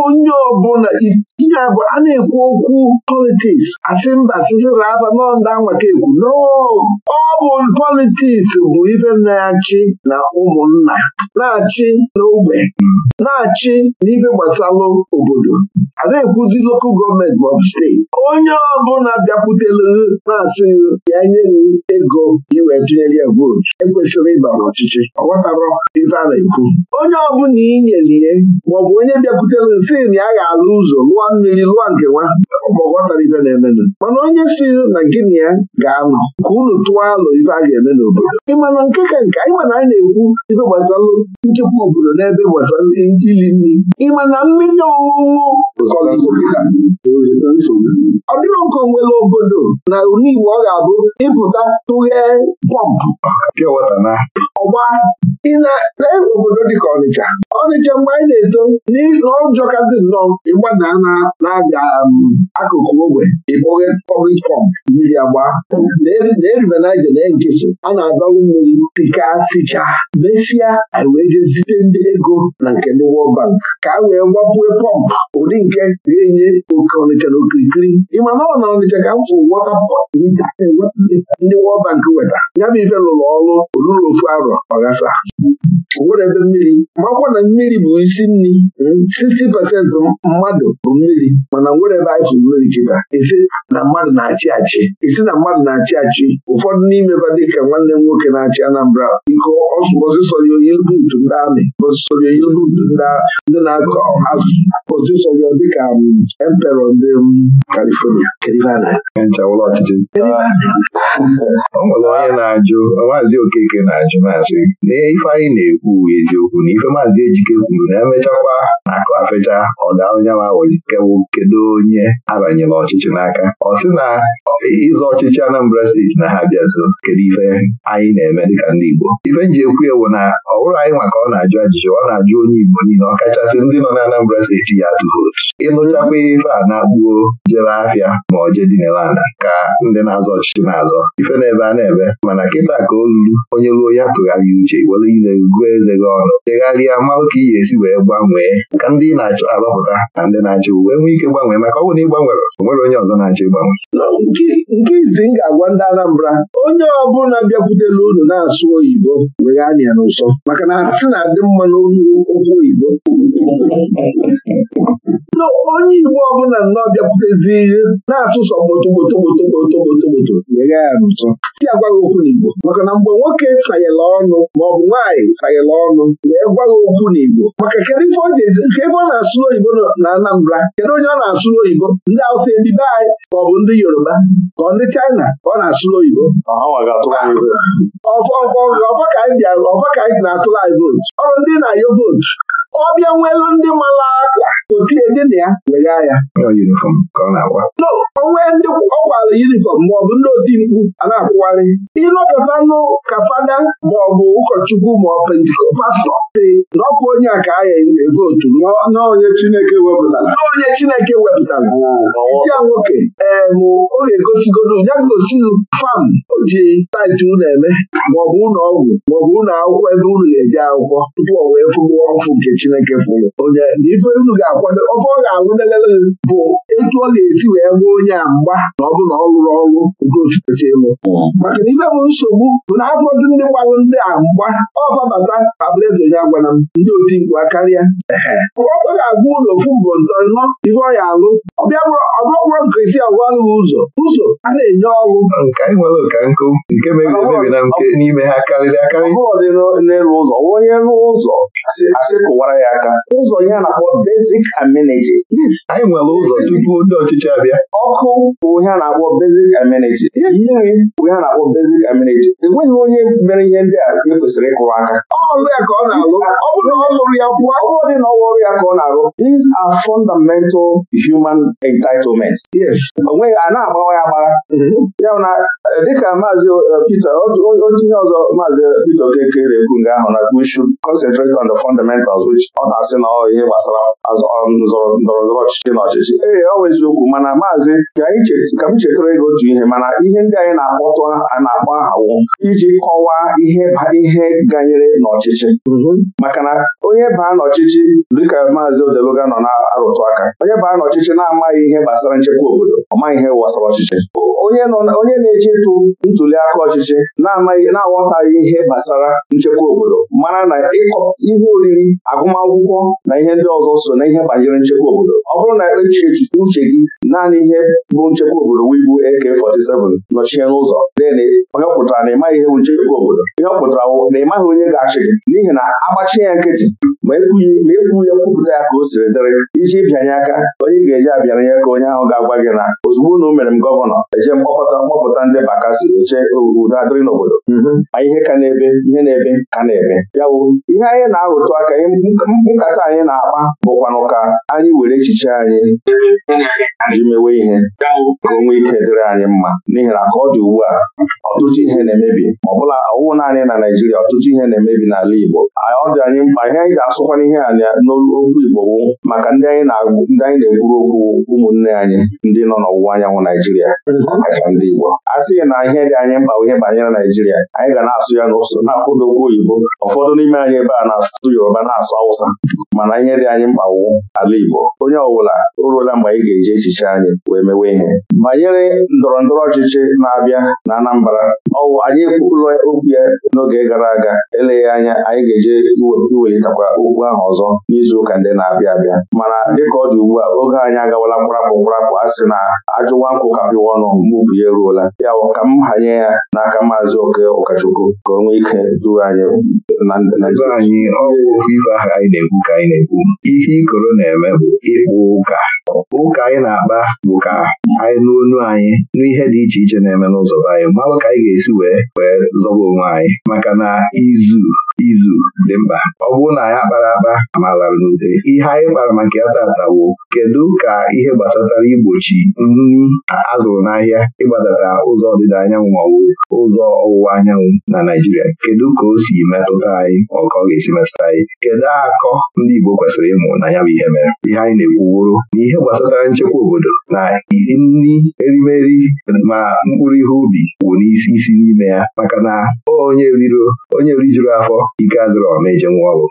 S2: onye ọbụla ihe abụ a na-ekwu okwu politiks asị mba sisira aba nọnda nwaka ekwu ọ bụ politiks bụ ife na-achị na ụmụnna na-achị n'ogbe mhm. na-achị n'ife gbasalụ obodo a na-ekwuzi lokal gọọmenti maọbụ steeti onye ọbụla bịakwutela maazị ya nye ego iwee tinyere vootu ekwesịrị ịba n'ọchịchị ọ ghọtara ife a na-ekwu onye ọbụla inyelie maọbụ onye bịakwutere si na ya ga-alụ ụzọ lụọ mmiri lụọ nke nwa ọ ghọtara ife na-emenụ mana onye si na gịnị ya ga-anọ ka unu tụọ alụ ife a ga-eme n'obodo ịmana nke ka nke anyị na anyị na-ekwu ife gbasalụ nchekwa obodo n'ebe gbasara iri nri ịmana mmiri ọṅụṅụ
S3: ọ dịrọ nke onwere obodo na ule Igbo ọ ga-abụ ịpụta tụghee
S2: bọmbụ ọgba ị na-lee obodo ka Ọnịcha Ọnịcha mgbe anyị na-eto n'ụjọ kazi nnọọ ịgbada na aga um, akụkụ ogbe ịkpọghe pọblik pọmp mmiri agba na-erubanaje na nkịtị a na-adọrụ mmiri tika sicha mesịa anyị wee jezite ndị ego na nke ndị World Bank ka a wee gbapue pọmpụ ụdị nke ga-enye oke Ọnịcha na okirikiri ịma na ọ na Ọnịcha ka m fụrụ wọta ndị World Bank weta ya bụ ife lụrụ ọrụ olulu ofu arọ ọghasa nwere ebe mmiri makwa na mmiri bụ isi nri 60 hmm, pasentị mmadụ bụ mmiri mana nwere ebe anyị fụrụ mmiri jụba isi na mmadụ na-achị achị isi na mmadụ na-achị achị ụfọdụ n'imeba ka nwanne m nwoke na-achị Anambra iko osịsọrọ oyibuutu ndị amị osịsọrọ oyibuutu ndị na-akọ osịsọrọ dịka um, emperọ ndị Kalifonia, um, o nwere onye na-ajụ Maazị Okeke na-ajụ na-asị na ife anyị na-ekwu eziokwu na ife maazi Ejike kwuru na emechakwa mkpesa ọdaanya ma nkewu kedu onye abanyela ọchịchị n'aka ọ sị na ịzọ ọchịchị Anambra steeti na ha bịa nso kedu ife anyị na-eme dịka ndị Igbo ife nji ekwu ewu na ọ bụrụ anyị maka ọ na-ajụ ajụjụ ọ na-ajụ onye Igbo niile ọ kachasị ndị nọ na Anambra steeti ya atụ vootu ịnụchakwa ife a na-akpuo jere ahịa ma ọ jee dinelanda ka ndị na-azọ ọchịchị na-azọ ife na-ebe a na-ebe mana kịta ka o onye ruo ya tụgharịa uche were ile gụọ eze gị ọnụ chegharịa mmanụ ka ị ga-esi wee gbanwee ka ndị na arọpụta na ndị na-achọ uwe nwee ike gbanwee maka ọ bụrụ na ị onwere onye ọzọ na-achọ ịgbanwe nke izi m ga-agwa ndị Anambra onye ọbụla bịakwutela unu na-asụ oyibo weghanị anya n'ụsọ maka na asị na-adị mma n'olu okwu oyibo onye Igbo ọbụla nnọọ bịakwutezi na-asụsọ gbotogbotogbotogbotogbotogboto si agwaghị okwu n'Igbo maka na mgbe nwoke sayela ọnụ maọbụ nwaanyị sayela ọnụ wee gwaghị okwu n'Igbo maka kedu ife ọ na-asụ n'oyibo na Anambra kedu onye ọ na-asụ n'oyibo ndị Hausa ndị be anyị maọbụ ndị Yoruba ka ndị China ka ọ na-asụ n'oyibo
S3: ah,
S2: ọfọ ka anyị na-atụrụ anyị vootu ọrụ ndị na ayo vootu ọ bịa nwelu ndị mara akwa otie ndị nwanne ya wega no onwe ndị ọ gwara yunifọm maọbụ ndị oti mkpu a na-akwụwarị ịnọpụta nụ ka fada maọbụ ụkọchukwu maọbụ pentikọpastọ si na ọkụ onye a ka agha otu n'onye Chineke wepụtara onye Chineke wepụtara nwoke ee bụ oge gosigodo ya gosi fam o ji taiti unu eme maọbụ ụlọ ọgwụ maọbụ ụlọ akwụkwọ ebe unu ga-eje akwụkwọ tupu o wee fụgbuo ọfụ nke Chineke fụrụ onye na ife ga-akwado ọfọ ga-alụ lelele bụ etu ọ ga-esi wee gwa onye a mgba na ọ bụ na ọ rụrụ ọrụ ogochikochi elu maka na ibe bụ nsogbu bụ na afọzi ndị gbalụ ndị a mgba ọfabata Fabrizio ya gwara m ndị otimkpu karịa ọkwa ga-agwa ụlọ ofu mbụ ntọnọ ife ọ ya alụ ọbịabụrụ nke isi agwalụ ụzọ ụzọ a na-enye ọrụ nwere nkụ nke na nke n'ime ha karịrị anyị nwere ụzọ tupu ndị ọchịchị abịa ọkụ bụ ihe a na-akpọ basic amenity nri bụ ihe a na-akpọ basic amenity enweghị onye mere ihe ndị a e kwesịrị ịkụrụ aka
S3: ọrụ ya ka ọ na-alụ ọ bụrụ ọ lụrụ
S2: ya pụọ ọ bụrụ dị na ọwa ọrụ ya ka ọ na-alụ these are fundamental human entitlements onweghị a na-agbawa ya agbara mm-hmm. ya na eh, dịka maazị eh, Peter otu ihe ọzọ maazị eh, Peter Okekere ekwu nga ahụ na we should concentrate on the fundamentals which ọ na-asị na ọ ihe gbasara nzọrọ ndọrọ ọchịchị na ọchịchị ee ọ eziokwu mana maazị ka m chetara ego otu ihe mana ihe ndị anyị na-akpọtụ a na-akpọ ahawo iji kọwaa ihe ihe ganyere n'ọchịchị maka na onye baa n'ọchịchị dịka maazị Odeluga nọ na-arụtụ aka onye baa n'ọchịchị na-amaghị ihe gbasara nchekwa obodo ọ maghị ihe gbasara ọchịchị onye na eji ịtụ ntuli aka ọchịchị na-amaghị na-aghọtaghị ihe gbasara nchekwa obodo mana na ịkọ ihe oriri agụmakwụkwọ na ihe ndị ọzọ so na ihe banyere nchekwa nchekwa obodo ọ bụrụ na echi uche gị naanị ihe bụ nchekwa obodo wee bụ AK47 nọchie n'ụzọ onye ọkpụtara pụtara na ịmaghị ihe bụ nchekwa obodo ihe pụtara na ịmaghị onye ga-achị gị n'ihi na agbachie ya nkịtị ma ekwu ya kwupụta ya ka o siri dịrị iji bịanye aka onye ga-eji abịara ka onye ahụ ga-agwa gị na ozugbo na o mere m gọvanọ eje mkpọkọta mkpọpụta ndị bakasi eche udo adịrị n'obodo ma mhm. ihe ka na-ebe ihe na-ebe ka na-ebe ya ihe anyị na-arụtụ aka nkata anyị na-akpa bụkwanụ ka anyị were echiche anyị ji mewe ihe ka onwe ike dịrị anyị mma n'ihi na ka ọ dị ugbu a ọtụtụ ihe na-emebi ma ọ bụla ọwụwụ naanị na Naịjirịa ọtụtụ ihe na-emebi n'ala Igbo ọ dị anyị mkpa ihe anyị ga-asụkwana ihe a n'okwu Igbo wụ maka ndị anyị na egburu okwu ụmụnne anyị ndị nọ n'ọwụwa anyanwụ naijiria mm-hmm. maka ndị Igbo a sịghị na ihe dị anyị mkpa ihe banyere naijiria anyị ga na-asụ ya ya na na-akwụ oyibo ụfọdụ n'ime anyị ebe a na-asụ Yoruba na-asụ Awụsa mana ihe dị anyị mkpa ala Igbo onye ọbụla o ruola mgbe anyị ga-eji echiche anyị wee mewe ihe banyere ndọrọ ndọrọ ọchịchị na-abịa na Anambra ọwụ anyị ụlọ okwu ya n'oge gara aga eleghị anya anyị ga-eje iwelitakwa okwu ahụ ọzọ n'izuụka ndị na-abịa abịa mana dịka ọ dị ugbu a oge anyị agawala mkparapụ mkparapụ a sị na ajụwa nkụ ka ọnụ mbupu ya eruola ya bụ ka m hanye ya n'aka maazị oke ụkọchukwu ka o nwee ike duo anyị na anyị ihe ikoro na-eme bụ ịkpụ ụka ụka anyị na-akpa bụ ka anyị n'onu anyị n'ihe dị iche iche na-eme n'ụzọ anyị mmalụ ka anyị ga-esi wee wee zọba onwe anyị maka na izu izu dị mkpa ọ bụrụ na anyị akpara akpa amalara n'ude ihe anyị kpara maka ya tata kedu ka ihe gbasatara igbochi nri azụrụ n'ahịa ịgbadata ụzọ ọdịda anyanwụ maọbụ ụzọ ọwụwa anyanwụ na Naijiria kedu ka o si metụta anyị ma ọ ga-esi metụta anyị kedu akọ ndị Igbo kwesịrị ịmụ na ya bụ ihe mere ihe anyị na-ekwuworo na ihe gbasatara nchekwa obodo na nri erimeri ma mkpụrụ ihe ubi bụ n'isi isi n'ime ya maka na onye rijuru afọ ike adịrọ na-eje nwa ọrụ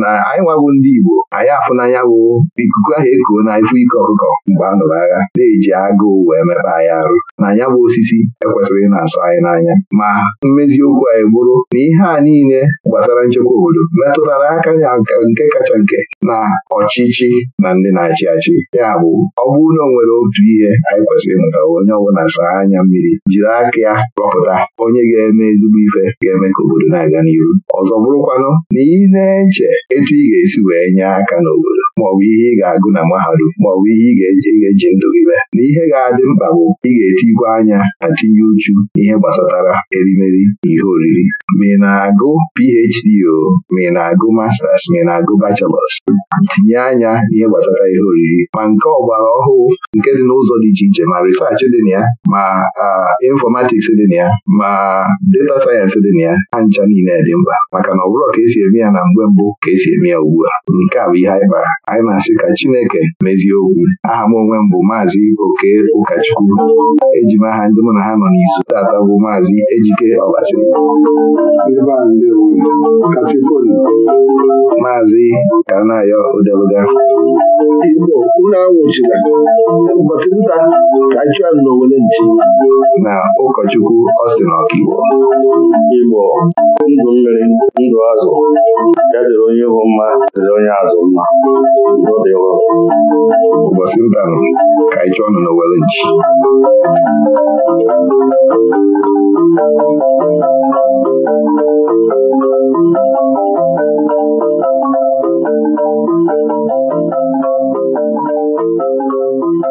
S2: na anyị nwabụ ndị Igbo anyị afụnanya bụ ikuku ahụ ekuo na ifụ ike ọkụkọ mgbe a nụrụ agha na-eji agụụ wee mepe anyị arụ na ya bụ osisi ekwesịrị ịna na-asọ anyị n'anya ma mmeziokwu anyị bụrụ na ihe a niile gbasara nchekwa obodo metụtara aka ya nke kacha nke na ọchịchị na ndị na-achị achị ya bụ ọ bụrụ na nwere otu ihe anyị kwesịrị ịmụta onye ọbụla saa anya mmiri jiri aka ya rọpụta onye ga-eme ezigbo ife ga-eme ka obodo na-aga n'iru ọzọ bụrụkwanụ na ị na-eji iche etu ị ga-esi wee nye aka n'obodo maọbụ ihe ị ga-agụ na mahadum maọbụ ihe ị ga-eji ndụ gị mee na ihe ga-adị mkpa bụ ị ga-etigwe anya na tinye uchu ihe gbasatara erimeri na ihe oriri ma ị na-agụ PhD o ma ị na-agụ masters ma ị na-agụ bachelors tinye anya ihe gbasara ihe oriri ma nke ọgbara ọhụụ nke dị n'ụzọ dị iche iche ma risaachị dị na ya ma infọmatiks dị na ya ma data sayensị dị na ya ha ncha niile dị mkpa maka na ọ bụrụ ka esi eme ya na mgbe mbụ ka esi eme ya ugbu a nke a bụ ihe anyị kpara anyị na-asị ka Chineke mezie okwu aha m onwe m bụ maazị Oke Ụkachukwu eji m aha ndị mụ na ha nọ n'izu tata bụ maazị Ejike Ọbasi maazị Kanayo Odeluga na ụkọchukwu Austin Ọkigbo Igbo ndụ mmiri ndụ azụ dịrị onye ịhụ mma dịrị onye azụ mma ụbọchị ụdanụ ka anyị chọọ nọ na Wellinji
S1: Thank you.